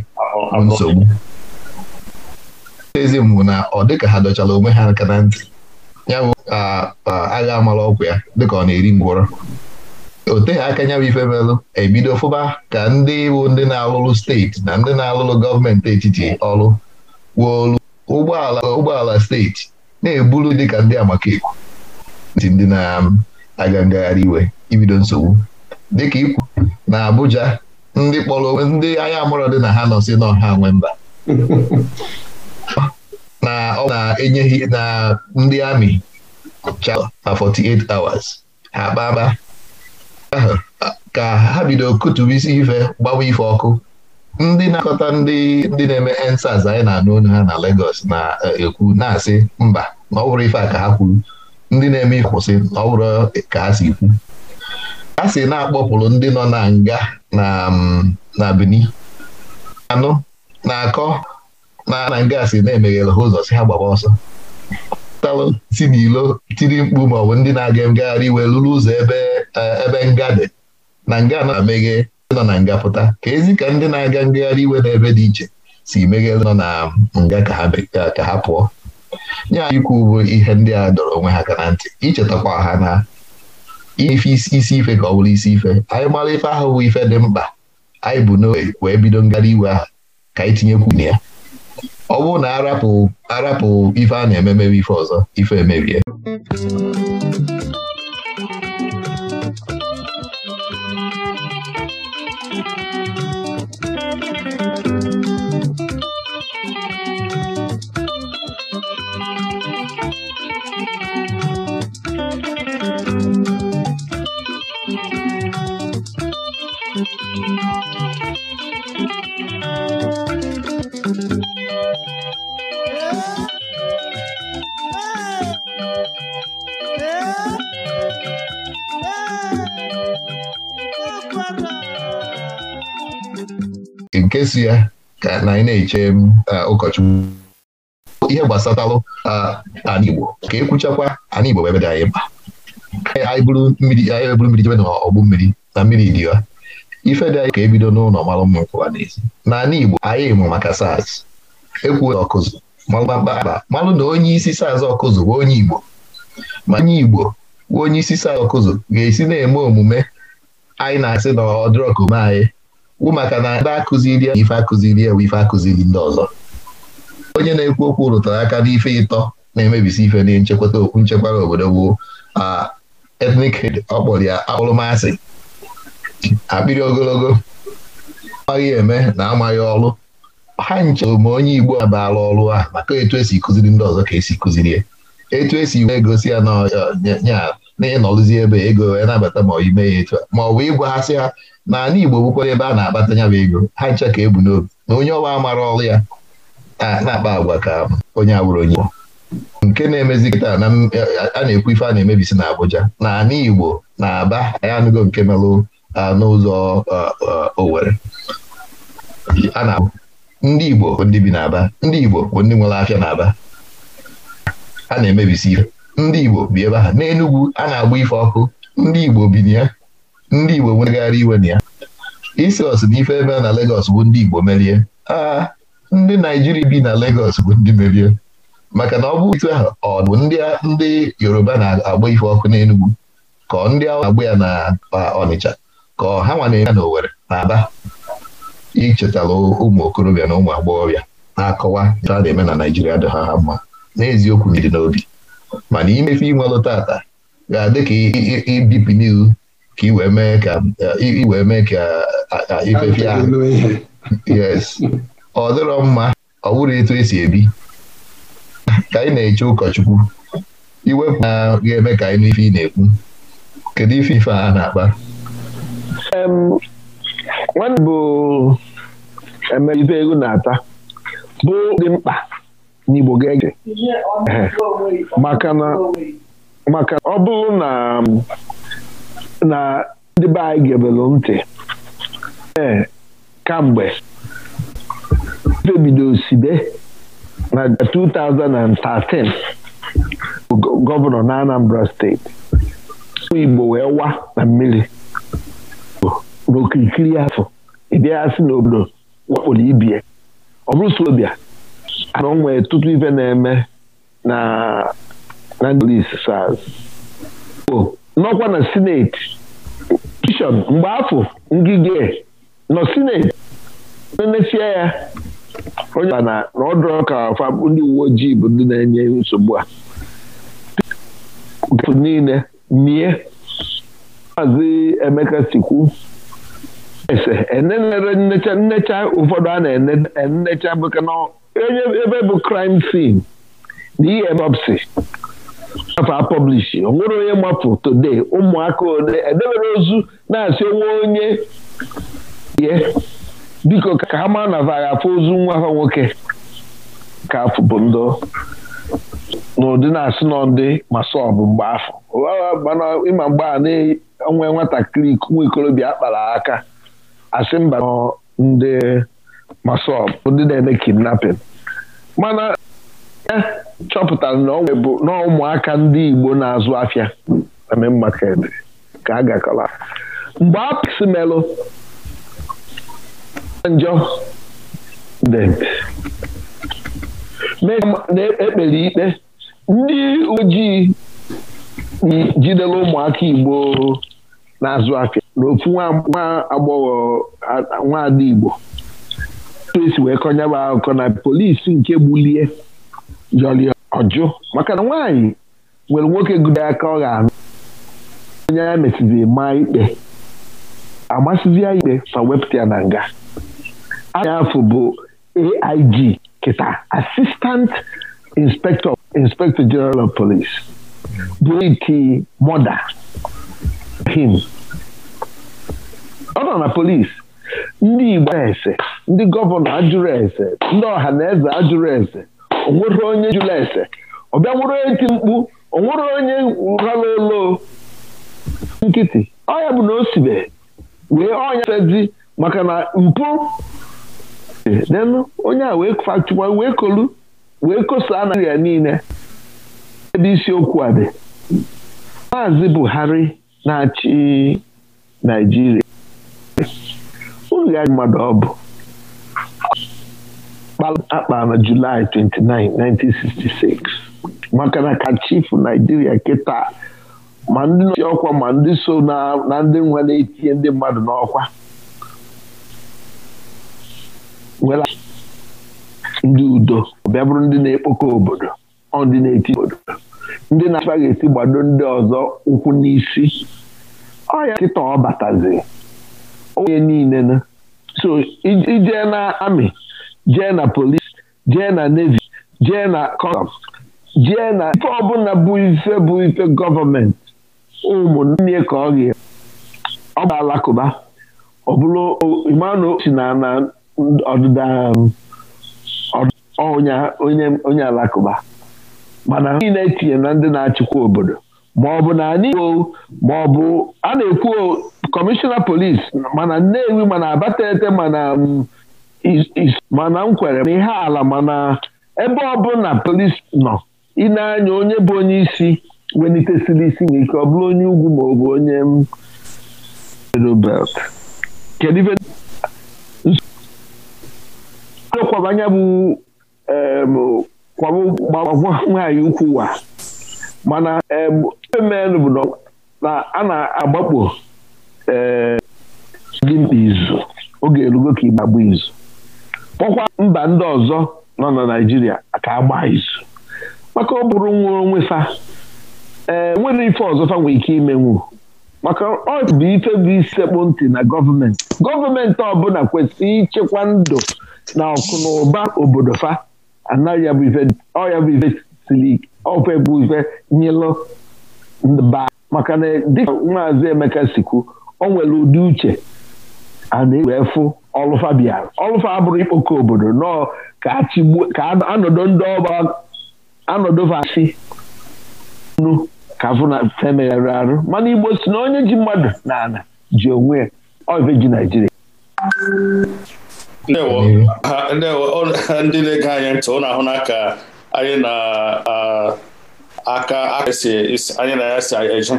nsogbu eze mbụ na ọ dịka ha dọchara onwe ha aka na ntị ya bụ agha amala ọgwụ ya dịka ọ na-eri ngwọrọ o teghị aka nya bụ ife melụ ebido fụba ka ndị bụ ndị na-alụrụ steeti na ndị na-alụrụ gọọmenti etiti ọrụ wuolu ụgbọala ụgbọala steeti na-eburu dịka ndị amakekwu ti ndị na-aga um, ngagharị iwe ibido nsogbu dịka ikwu na Abuja ndị kpọrọ ndị anya mụrụ dị na ha nọ si n'ọha nwe mba na ọ na-enyeghị na ndị amị chaa 48 hours ha kpaba ka ha bido kutubu isi ife gbawa ife ọkụ ndị na-akọta ndị ndị na-eme ensas anyị na-anụ onu ha na Lagos na-ekwu eh, na-asị mba na ọ bụrụ ife a ka ha kwuru ndị na-eme ịkwụsị na ọ bụrụ ka ha si kwu a si na-akpọpụrụ ndị nọ na nga na mm, Benin na akọ na nga si na emeghere ha ụzọ si ha gbaba ọsọ talụ si n'ilo tiri mkpu ma ọ bụ ndị na-aga ngagharị iwe lụrụ ụzọ ebe e, ebe nga dị na nga na-emeghe nọ na nga pụta ka ezi ka ndị na-aga ngagharị iwe n'ebe dị iche si meghe nọ na nga ka ha pụọ nye ikwu bụ ihe ndị a dọrọ onwe ha ka na ntị ichetakwa ha na ife isi ife ka ọ bụrụ isi ife anyị mara ife ahụ bụ ife dị mkpa anyị bụ n'oge wee bido ngagharị iwe ahụ ka anyị tinyekwu na ya ọ bụrụ na arapụ arapụ ife a na-eme mebe ife ọzọ ife emebie ka si ya ka na anyị na-eche um, uh, ụkọchukwu ihe gbasatalụ uh, ala Igbo ka ekwuchakwa ala Igbo ebe dị anyị mkpa anyị bụrụ mmiri anyị bụrụ mmiri jebe na n'ọgbụ mmiri na mmiri dị ya ife dị anyị ka ebido n'ụlọ malụ mma nkwụwa n'ezi n'ala Igbo anyị mụ maka SARS ekwuo ọkụzụ malụkpakpa malụ na onye isi SARS ọkụzụ bụ onye Igbo ma onye Igbo bụ onye isi SARS ọkụzụ ga-esi na-eme omume anyị na-asị na ọ omume anyị wụ maka na na-akụziri ife akụziri ewu ife akụziri ndị ọzọ onye na-ekwu okwu rụtara aka n'ife ịtọ na-emebisi ife na nchekwata okwu nchekwara obodo bụ etnik hed ya akpụrụmasị akpịrị ogologo amaghị eme na amaghị ọrụ ha nchere ma onye Igbo abala ọrụ a maka etu esi kụziri ndị ọzọ ka esi kụzirie etu esi wee ya na nya ya na ịnọrụzi ebe ego wee nabata ma ime ya etu ma ọ bụ ịgwaghasị ha sị na ala Igbo bụkwara ebe a na-akpata ya bụ ego ha ncha ka ebu n'obi na onye ọwa mara ọrụ ya na-akpa agwa ka onye awụrụ onye nke na-emezi kịta na a na-ekwu ife a na-emebisi na Abuja na ala Igbo na Aba anyị anụgo nke melụ n'ụzọ Owerri a na-abụ ndị Igbo bụ ndị bi n'Aba ndị Igbo bụ ndị nwere afịa n'Aba a na-emebisi ife ndị Igbo bi ebe ahụ n'Enugwu a na-agba ife ọkụ ndị Igbo bi na ya ndị Igbo nwegharị iwe na ya isi na ife ebe na Legos bụ ndị Igbo merie aa ah, ndị Naijiria bi na Legọs bụ ndị merie maka na ọ bụ itu ahụ ọ bụ ndị Yoruba na-agba ife ọkụ n'Enugwu ka ndị ahụ na-agba ya na Ọnịcha ka ha nwa na-eme na Owere na Aba ichetala ụmụ okorobịa na ụmụ agbọghọbịa na-akọwa a na-eme na Naijiria dị ha ha mma n'eziokwu ndị n'obi mana imefe inwelụ tata ga-adị ka ibipi n'ihu ka i wee mee ka i wee mee ka ifefe ahụ yes ọ dịrọ mma ọ bụrụ etu esi ebi ka anyị na-eche ụkọchukwu iwepụ a ga-eme ka anyị n'ife ị na-ekwu kedu ife ife a na-akpa nwanne bụ emegide ego na-ata bụ dị mkpa ndị Igbo ga-ege maka na ọ bụrụ na na ndị be anyị gebelụ ntị ee kamgbe febido osibe na 2013 gọvanọ na Anambra steeti Igbo wee wa na mmiri n'okirikiri afọ ịbịa sị n'obodo wakporo ibie ọ bụrụ na o nwere ife na-eme na na lis sars nọkwa na sineti pishọn mgbe afọ ngige nọ sineti na-emesie ya onye ọbụla na ọdụrụ ka afa ndị uwe ojii bụ ndị na-enye nsogbu a niile mie maazị Emeka sikwu ese e enenecha nnecha ụfọdụ a na-enecha e bụka onye ebe bụ crime scene na ihe bọpsi afa publishi o nwere onye mmapụ tode ụmụaka ole edebere ozu na-asị onwe onye ye biko ka ha mara na vara afọ ozu nwa ha nwoke ka afụbụ ndụ n'ụdị na-asị nọ ndị masọbụ mgbe afọ ịma mgbe a na-enwe nwatakịrị nwa ikorobịa akpara aka asị mba ndị ma sọ ndị na-eme kidnapping mana e chọpụtara na ọ bụ na ụmụaka ndị Igbo na-azụ afịa na main ka a gakọla mgbe apịsị melụ njọ na-ekpere e, ikpe ndị ojii jidere ụmụaka Igbo na-azụ afịa na nwa agbọghọ nwaada Igbo polisi wee kọnya bụ akụkọ na polisi nke gbulie jọli ọjụ maka na nwaanyị nwere nwoke gudo aka ọ ga-anụ onye ya mesịzi maa ikpe amasịzi ya ikpe ma wepụta ya na nga anya afọ bụ AIG kịta Assistant Inspector Inspector General of Police bụrụ iti mọda him ọ nọ na polis ndị Igbo ese ndị gọvanọ ajụrụ ese ndị ọha na eze ajụrụ ese onwere onye jụrụ ese ọ bịa nwere onye ti mkpu onwere onye rara olo nkịtị ọya bụ na o sibe wee ọnya sezi maka na mpụ onye a wee fachụkwa wee kolu wee kosaa na ya niile ebe isiokwu a dị maazị Buhari na-achị Naijiria oge anyị mmadụ ọ bụ akpa na Julaị 29 1966 maka na ka chifu Naijiria kịta ma ndị nọchi ọkwa ma ndị so na ndị nwe na-etinye ndị mmadụ n'ọkwa nwere ndị udo bịa bụrụ ndị na-ekpokọ obodo ọ ndị na-eti obodo ndị na-achịkwa ga-esi gbado ndị ọzọ ụkwụ n'isi ọ ya kịta ọ batazi onye niile na so ijee na amị jee na polis jee na nevi jee na kọsam jee na ife ọbụla bụ ife bụ ife gọọmenti ụmụnne ka ọ ga ọ bụ alakụba ọ bụrụ si na na ọdịda onye alakụba mana niile etinye na ndị na-achịkwa obodo ma ọ bụ na anyị ọ bụ a na-ekwu kọmishọna polis mana Nnewi mana Abatete mana mm, mana Nkwere na ihe ala mana ebe ọ na polis nọ ịna-anya onye bụ onye isi welitesiri isi n'ike ọ bụrụ onye ugwu ma onye kwabanya bụ onye mm, nwaanyị ukwu wa mana ife mmenụ bụ na a na-agbakpo gị eh, izu oge erugo ka ịgbagba izu kpọkwa mba ndị ọzọ nọ na Naịjirịa ka agba izu maka ọ bụrụ nwa onwe fa ee eh, nwere ife ọzọ fa ike ike imenwu maka ọ bụ ife bụ ntị na gọọmenti gọọmenti ọbụla kwesịrị ịchekwa ndụ na ụba obodo fa anaghị bụ ife siri ọfe bụ ife nyelụ baa maka na dịka maazị Emeka sikwu o nwere ụdị uche a na-ewe fụ ọlụfa bịara ọlụfa abụrụ ikpoko obodo nọọ ka ka anọdụ ndị ọba anọdụva si nu ka fụna femeghere arụ mana Igbo si na onye ji mmadụ na ala ji onwe ya ọve ji Naijiria ndị na-ege anyị ntị ọ ahụ na ka anyị na aka anyị na ya si eje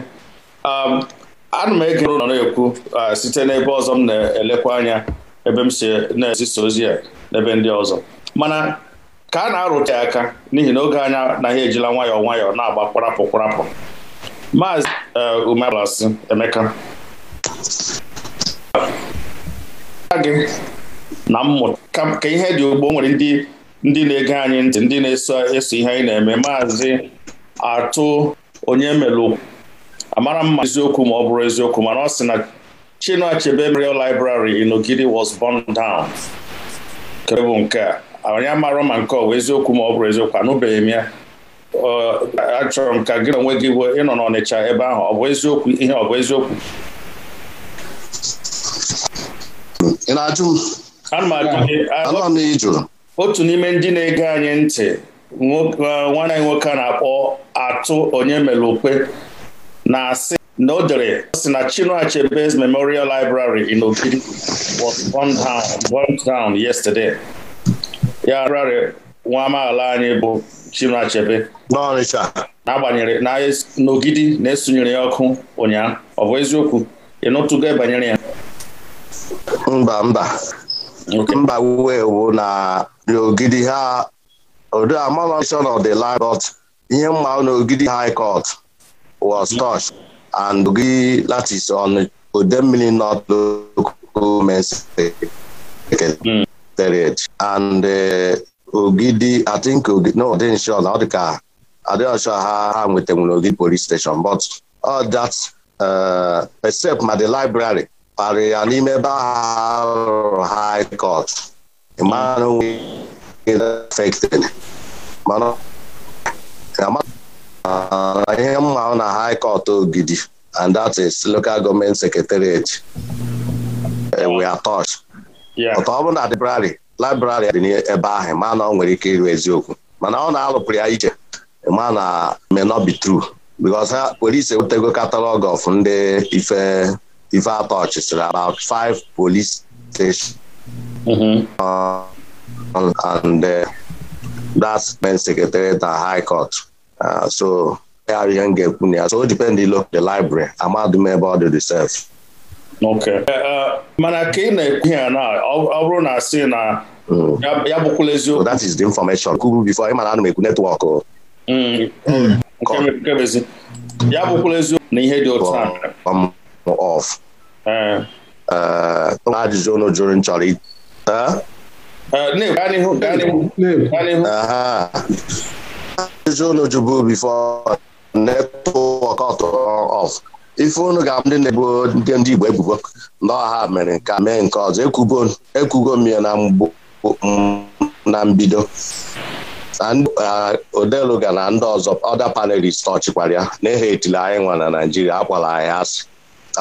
um, ana m ege nọ na-ekwu uh, site n'ebe ọzọ m na-elekwa anya ebe m si na-ezisa ozi ya n'ebe ndị ọzọ mana ka a na-arụta ya aka n'ihi na oge anya na ha ejila nwayọọ nwayọọ na-agba kwarapụ kwarapụ maazị uh, umebalasi emeka gị na mmụta ka ihe dị ugbo nwere ndị na-ege anyị ntị ndị na-eso ihe anyị na-eme maazị atụ onye melụ amara mma eziokwu ma ọ bụrụ eziokwu mana ọ sị na Chinua Achebe Memorial Library in was born down kebụ nke a onye amarọ ma nke ọ bụ eziokwu ma ọ bụrụ eziokwu anụbeghị m ya achọrọ m ka gị na onwe gị ịnọ n'Ọnịcha ebe ahụ ọ bụ eziokwu ihe ọ bụ eziokwu m otu n'ime ndị na-ege anyị ntị E, nwanne anyị nwoke a na-akpọ atụ onye mere okpe na-asị na o dere si na Chinua Achebe's Memorial Library in Ogidi was burned down, down yesterday. ya library nwa amaala anyị bụ Chinua Achebe n'agbanyeghị n'Ogidi na-esunyere ya ọkụ ụnyaahụ ọ bụ eziokwu ị nụtụgo e banyere ya mba mba mba wee bụ na n'Ogidi ha Odamason of the Land Court ihe mma n'Ogidi High Court was mhm. touch and Ogidi that is on Odemmili North Local Men's and e, Ogidi I think no ọ dịghị sure na ọ dị ka adịghị ha ha nwetanwere Ogidi police station but all that e, except ma the library kparị ya n'ime ebe ahụ High Court ihe mma na high court Ogidi and that is local government secretariat we are touched ọtọ ọ bụ na library library dị n'ebe ahụ ma na ọ nwere ike iru eziokwu mana ọ na-alụpụrụ ya iche ma na may not be true because ha were ise wetego catalog of ndị ife ife atọchị about five police stations mm-hmm. uh, and uh, that's been secretary at high court uh, so m ga-ekwu so o depend the library amadum ebe ọ dị reserve okay uh, uh, mana ka ị ekwu na ọ bụrụ na mm. ya that is the information before ịmana ana m ekwu netwọk ya bụkwala eziokwu na ihe dị otu a ajụjụ unu jụrụ nchọrọ ajụjụ unu jụbụ bifo netwọk ọf ife unu ga ndị na-ebuo ndị Igbo ebubo na ọha mere ka mee nke ọzọ ekwugo m ya na mbido uh, odeluga na ndị ọzọ ọda panelist ọchịkwara ya na-ehe etili anyị nwa na Naijiria akpọla anyị asị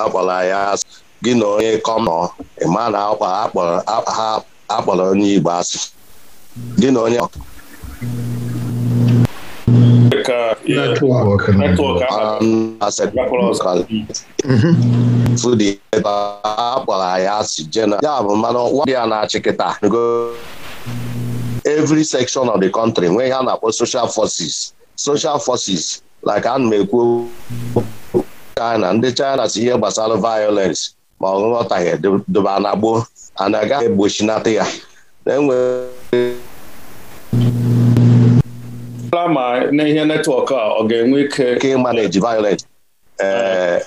akpọla anyị asị gị na onye kọmọ ịma na akpọrọ ha akpọrọ onye Igbo asị gị na onye fụdị um, mm-hmm. ebe a kpọrọ ya asị jena bụ mmanụ ọkwa dị ya na-achị kịta every section of the country nwee ihe a na-akpọ social forces social forces like ana m ekwu China ndị China si ihe gbasara violence ma ọ ghọtaghị doba na gboo a na-aga egbochilata ya na ma n'ihe netwọk a ọ ga-enwe ike manage violence uh,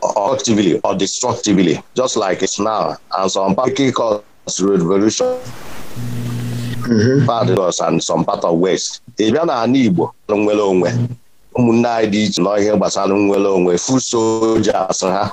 constructively or destructively just like it's now and some particular cause revolution paradox mm-hmm. and some part of west ị bịa na ala Igbo nwere onwe ụmụnne anyị dị iche nọ ihe gbasara nwere onwe full soldiers ha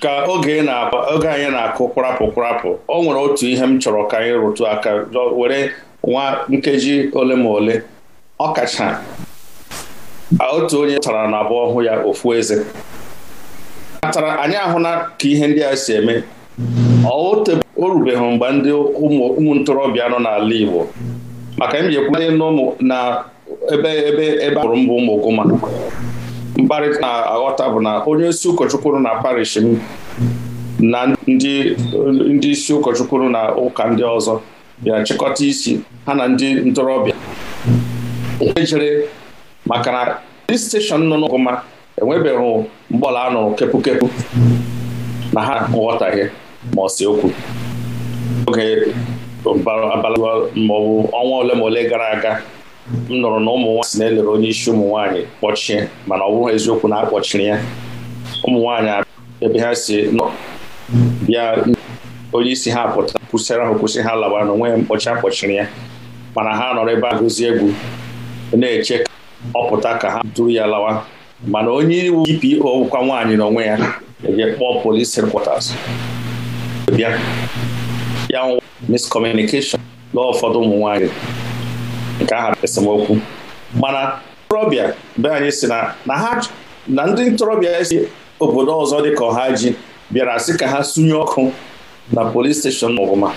ka oge anyị na-akụ kwarapụ kwarapụ o nwere otu ihe m chọrọ ka anyị rụtu aka were nwa nkeji ole ma ole ọkacha otu onye tara na abụọ ọhụụ ya ofu eze atara anyị ahụla ka ihe ndị a si eme o rubeghị mgbe ndị ụmụ ntorobịa nọ n'ala Igbo maka m ji na ebe ebe a mbụ ụmụ Gụma mkparịta na-aghọta bụ na onye isi ụkọchukwu na parish m na ndị isi ụkọchukwu na ụka ndị ọzọ Ya chịkọta isi ha na ndị ntorobịa ejere maka na dị steshọn nọ n'ọgụma enwebeghị mgbọla anụrụ kepụkepụ na ha nghọtaghị ma ọ okwu oge abalị maọbụ ọnwa ole ma ole gara aga m nụrụ na ụmụ nwaanyị si na-elere onye isi ụmụ nwaanyị kpọchie mana ọ bụghị eziokwu na akpọchiri ya ụmụ nwaanyị ebe ha si bịa onye isi ha pụta kwụsịra ha kwụsị ha lawa na onwe ya mkpọchi akpọchiri ya mana ha nọrọ ebe a gụzie egwu na-eche ka ọ pụta ka ha duru ya lawa mana onye iwu DPO kwa nwaanyị onwe ya eje kpọọ polisi headquarters bịa ya miscommunication na ụfọdụ ụmụ nwaanyị nke aha esemokwu mana ntorobịa be anyị si na na ndị ntorobịa si obodo ọzọ dị ka ọha ji bịara sị ka ha sunye ọkụ na polis steshọn ọbụma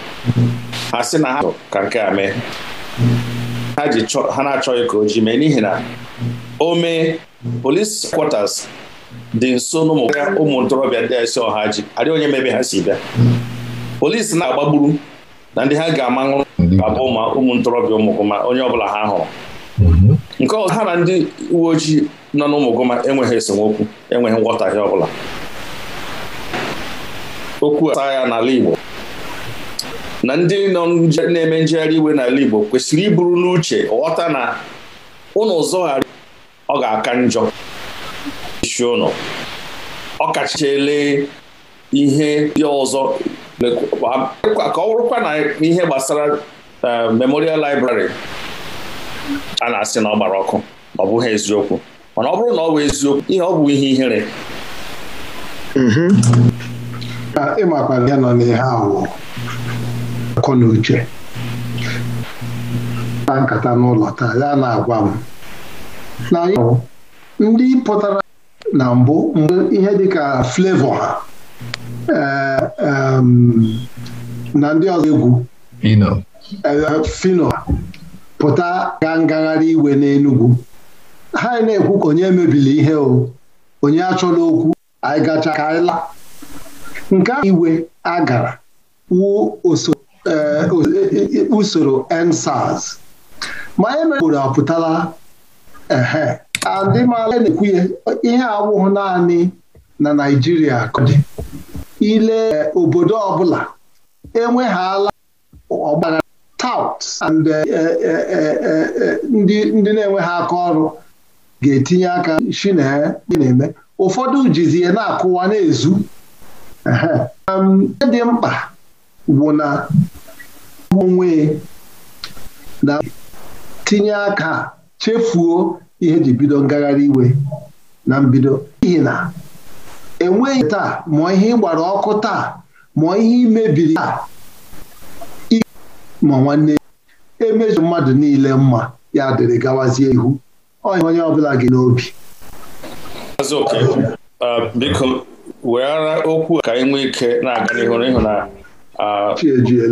ha sị na ha ka nke a mee ha na-achọghị ka o ji mee n'ihi na o mee polis kwatas dị nso n'ụmụ ụmụ ntorobịa ndị si ọha ji adịghị onye mebe ha si bịa polis na-agbagburu na ndị ha ga-amanwụ mhm. abụ ma ụmụ ntorobịa ụmụgụma onye ọbụla ha hụrụ mhm. nke ọzọ ha na ndị uwe ojii nọ n'ụmụgụma enweghị esemokwu enweghị nghọtahie ọbụla okwu a ya n'ala Igbo na ndị na-eme njegharị iwe n'ala Igbo kwesịrị iburu n'uche ghọta na ụnụ zọgharị ọ ga-aka njọ isi ụnụ ọ ele ihe ndị ọzọ ka ọ bụrụkwa na ihe gbasara memorial library a na-asị na ọ gbara ọkụ ọ bụghị eziokwu mana ọ bụrụ na ọ bụ eziokwu ihe ọ bụ ihe ihere ịmakwa ya nọ n'ihe ahụ akọ na uche na nkata n'ụlọ taa ya na-agwa m na ndị pụtara na mbụ mgbe ihe dịka flevo ha na ndị ọzọ egwu fino pụta gaa ngagharị iwe n'Enugwu ha na-ekwu ka onye mebiri ihe o onye achọla okwu anyị gacha ka anyị la nke iwe a gara wuo e, e, e, usoro nsars. ma anyị mere apụtala ehe adịmala na-ekwu ya ihe awụghị naanị na Naịjirịa ka ile obodo ọbụla enweghala ọgbara taụt eh, eh, eh, ndị na-enweghị aka ọrụ ga-etinye aka shi na-eme ụfọdụ jizie na-akụwa na-ezu dị mkpa bụ na onwe na tinye aka chefuo ihe ji bido ngagharị iwe na mbido n'ihi na enweghị taa mụọ ihe ịgbara ọkụ taa mụọ ihe imebiri taa ma nwanne emezu mmadụ niile mma ya dịrị gawazie ihu onye onye ọbụla gị n'obi biko weghara okwu ka anyị nwee ike na-aga n'ihu n'ihu na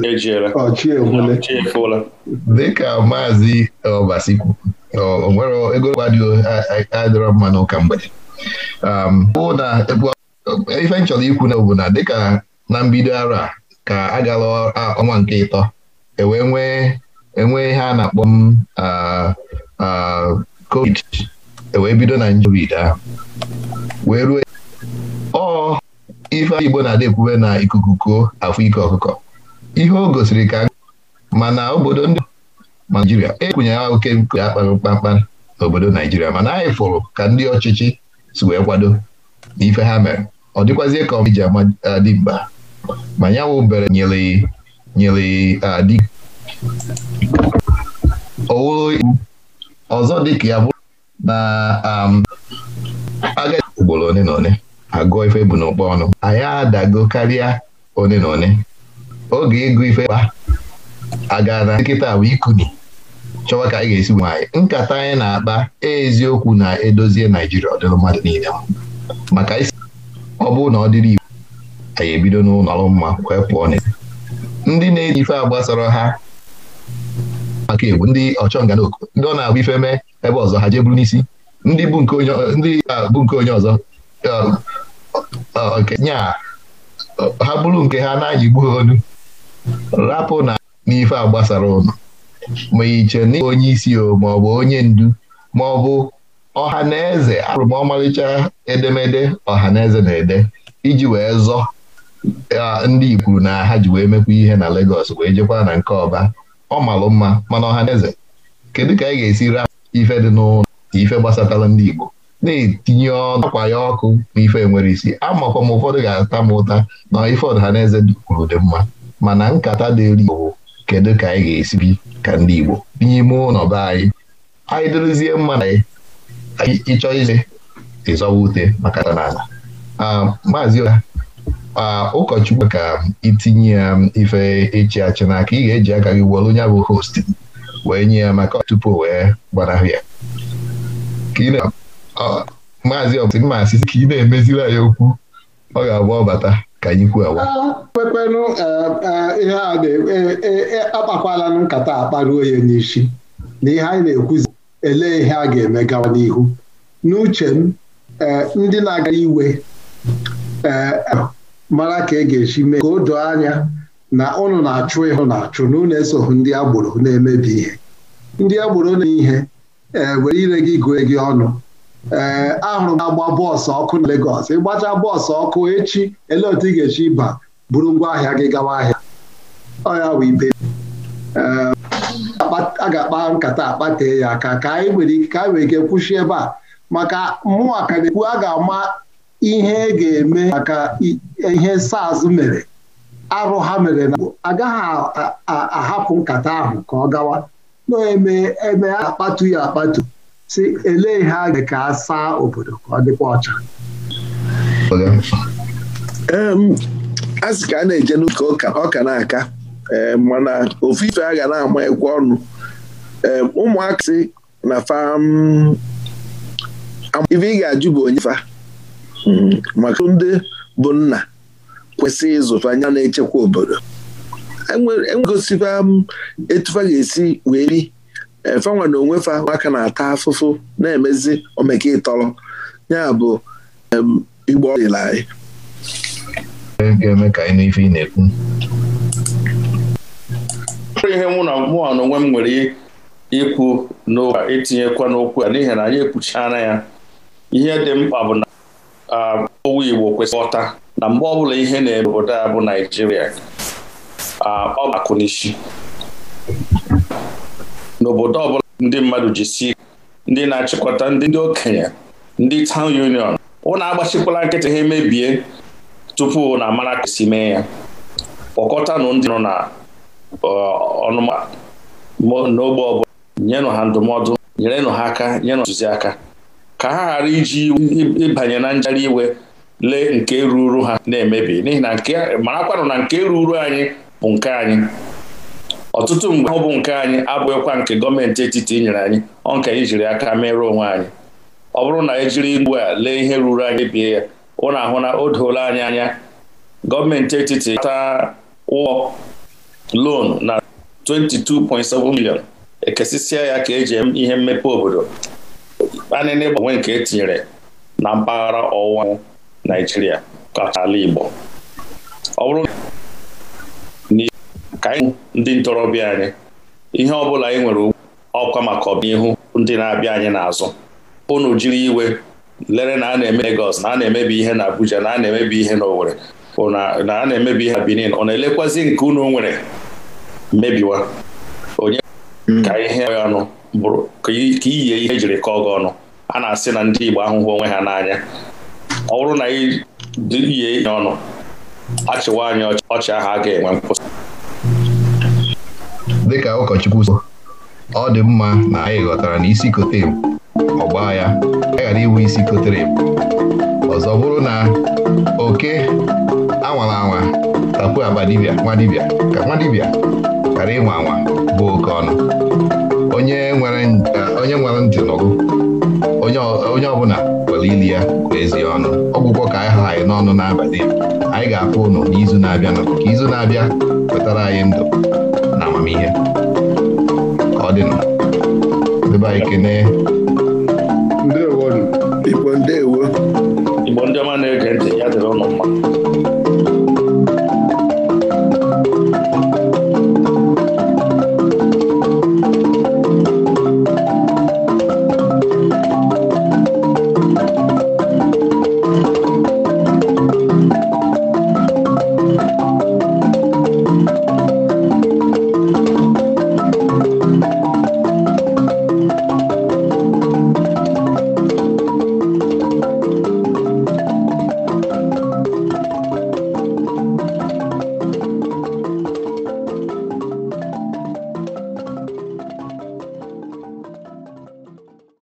ejiela dịka maazị ọbasi o nwere ego gbadio adịrọ mma n'ụka mgbede um, bụ na ife m chọrọ ikwu na bụ na dịka na mbido ara ka a gara ọnwa nke ịtọ ewee nwee enwee ihe a na-akpọ m um, covid ewee bido na njovid wee ruo ọ ife igbo na-adị ekwube na ikuku kuo afọ ike ọkụkọ ihe o gosiri ka mana obodo ndị naijiria ekwunye ya oke nke akpara kpamkpam n'obodo naijiria mana anyị fụrụ ka ndị ọchịchị si wee kwado n'ife ha mere ọ dịkwazie ka ama uh, dị mkpa ma ya wụ bere nyere nyere adị uh, owuru ọzọ dị ka ya bụrụ na um, aga ugboro one na one agụọ ife bụ n'ụkpọ ọnụ anyị adago karịa one na one oge ịgụ ife kpa aga na nkịta bụ ikuni chọwa ka anyị ga-esi nwaanyị nkata anyị na-akpa eziokwu na edozie Naijiria ọ mmadụ niile maka isi ọ bụrụ na ọ dịrị igbo anyị ebido n'ụlọ mma kwee pụọ na ndị na-eji ife a gbasara ha maka egwu ndị ọchọnganaoko ndị ọ na-agba ife mee ebe ọzọ ha jee bụrụ n'isi ndị bụ nke onye ọzọ nke nya ha bụrụ nke ha na-anyị gbuo olu rapụ na n'ife a gbasara ụlọ ma iche na onye isi o ma ọ bụ onye ndu ma ọ bụ ọha na eze abụrụ ọmarịcha edemede ọha na eze na-ede iji wee zọ ndị Igbo na ha ji wee mekwa ihe na legos wee jekwa na nke ọba ọ malụ mma mana ọha na eze kedu ka anyị ga-esi raa ife dị n'ụlọ ife gbasatara ndị Igbo na-etinye ọnụ akwa ya ọkụ na ife nwere isi amakwa m ụfọdụ ga-ata m ụta na ife ọdịnaneze kwuru dị mma mana nkata dị elu kedu ka anyị ga esibi ka ndị Igbo n'ime ụlọ be anyị anyị dịrịzie mma na ịchọọ ile ịzọwa ute maka ala. maazị ụkọchukwu ka itinye ya ife ịchị achị n'aka ị ga-eji aka gị were onye bụ host wee nye ya maka tupu wee gbanahụ ya maazị ọbụsị mma asịsị ka ị na-emeziri anyị okwu ọ ga-agba ọbata ka anyị kwuo kwekwenụ ihe a na-akpakwalanụ nkata akparuo ya n'isi na ihe anyị na-ekwuzi elee ihe a ga-eme gawa n'ihu n'uche m eh, ndị na-aga iwe eh, mara ka e ga-esi mee ka o doo anya na ụnụ na-achụ ịhụ na-achụ na ụnụ esoghị ndị agboro na-emebi ihe ndị agboro na ihe eh, were ire gị gụọ gị ọnụ ee ahụrụ m agba bọọsụ ọkụ na Legọs ịgbacha bọọsụ ọkụ echi ele otu ị ga-esi ịba buru ngwa ahịa gị gawa ahịa ọ ya bụ ibe a ga-akpa nkata akpatee ya aka ka anyị nwere ike ka anyị nwere ike kwụsị ebe a maka mmụọ ka na-ekwu a ga-ama ihe e ga-eme maka ihe SARS mere arụ ha mere na agaghị ahapụ nkata ahụ ka ọ gawa na-eme eme akpatu ya akpatu si ele ihe a ga ka a saa obodo ka ọ dịkwa ọcha a sị ka a na-eje n'ụka ọ na-aka mana ofu ife a ga na-ama ekwe ọnụ ụmụaka si na fam ife ị ga-ajụ bụ onye fa mhm, maka ndị bụ nna kwesị ịzụfa anya na-echekwa obodo enwegosikwa e m etufa ga-esi wee ri fanwa na onwe fa nwaka na-ata afụfụ na-emezi omeke ịtọrọ ya bụ igbo ọdịla anyị ka anyị ị na-ekwu ihe mụ na mụ na onwe m nwere ikwu n'ụka itinyekwa n'okwu ya n'ihi na anyị ekwuchana ya ihe dị mkpa bụ na owu Igbo kwesịrị ghọta na mgbe ọbụla ihe na-eme obodo a bụ Naijiria ọ bụ n'isi n'obodo ọbụla ndị mmadụ si ndị na-achịkọta ndị okenye ndị town union ụna agbachikwala nkịtị ha emebie tupu na amara ka mee ya kpọkọtanụ ndị nọ na ọnụma n'ogbe ọbụla nyenụ ha ndụmọdụ nyerenụ ha aka nyenụ ntụziaka ka ha ghara iji ịbanye na njari iwe lee nke ruru ha na-emebi n'ihi na marakwanụ na nke ruru anyị bụ nke anyị ọtụtụ mgbe ahụ bụ nke anyị abụghịkwa nke gọọmenti etiti nyere anyị ọ nke anyị jiri aka merụọ onwe anyị ọ bụrụ na ejiri igbu a lee ihe ruru anyị bie ya ụna ahụ na o doola anyị anya gọọmenti etiti taa ụgwọ lon na 22.7 million ekesịsịa ya ka eji ihe mmepe obodo anịna ịgbanwe nke etinyere na mpaghara ọwụwa anyanwụ Naijiria kacha ala Igbo ọ bụrụ ka anyị ndị ntorobịa anyị ihe ọ bụla anyị nwere ọkwa maka ọbịnihu ndị na-abịa anyị n'azụ ụnụ jiri iwe lere na a na-eme na a na-emebi ihe na Abuja na a na-emebi ihe na Owerri na a na-emebi ihe na Benin ọ na-elekwazi nke unu nwere mebiwa. Hmm. ka ihe ọnụ bụrụ ka iyie ihe ejiri kọọ gị ọnụ a na-asị na ndị Igbo ahụhụ onwe ha n'anya ọ bụrụ na iyie ihe ọnụ achịwa anyị ọchị ahụ a ga-enwe nkwụsị dịka ụkọchukwu ọ dị mma na anyị ghọtara na isi kotere m ọgba ya a ghara iwu isi kotere m ọzọ bụrụ na oke anwala anwa tapu aba dibịa nwa ka nwa ghara ịnwa anwa oke ọnụ onye nwere eh, ntị nụrụ onye ọbụla kwere ili ya kwa ọnụ ọgwụgwọ ka anyị ha anyị n'ọnụ n'abalị anyị ga-apụ ụnụ n'izu na-abịa ka izu na-abịa wetara anyị ndụ na amamihe ka ọ dị nọ anyị kene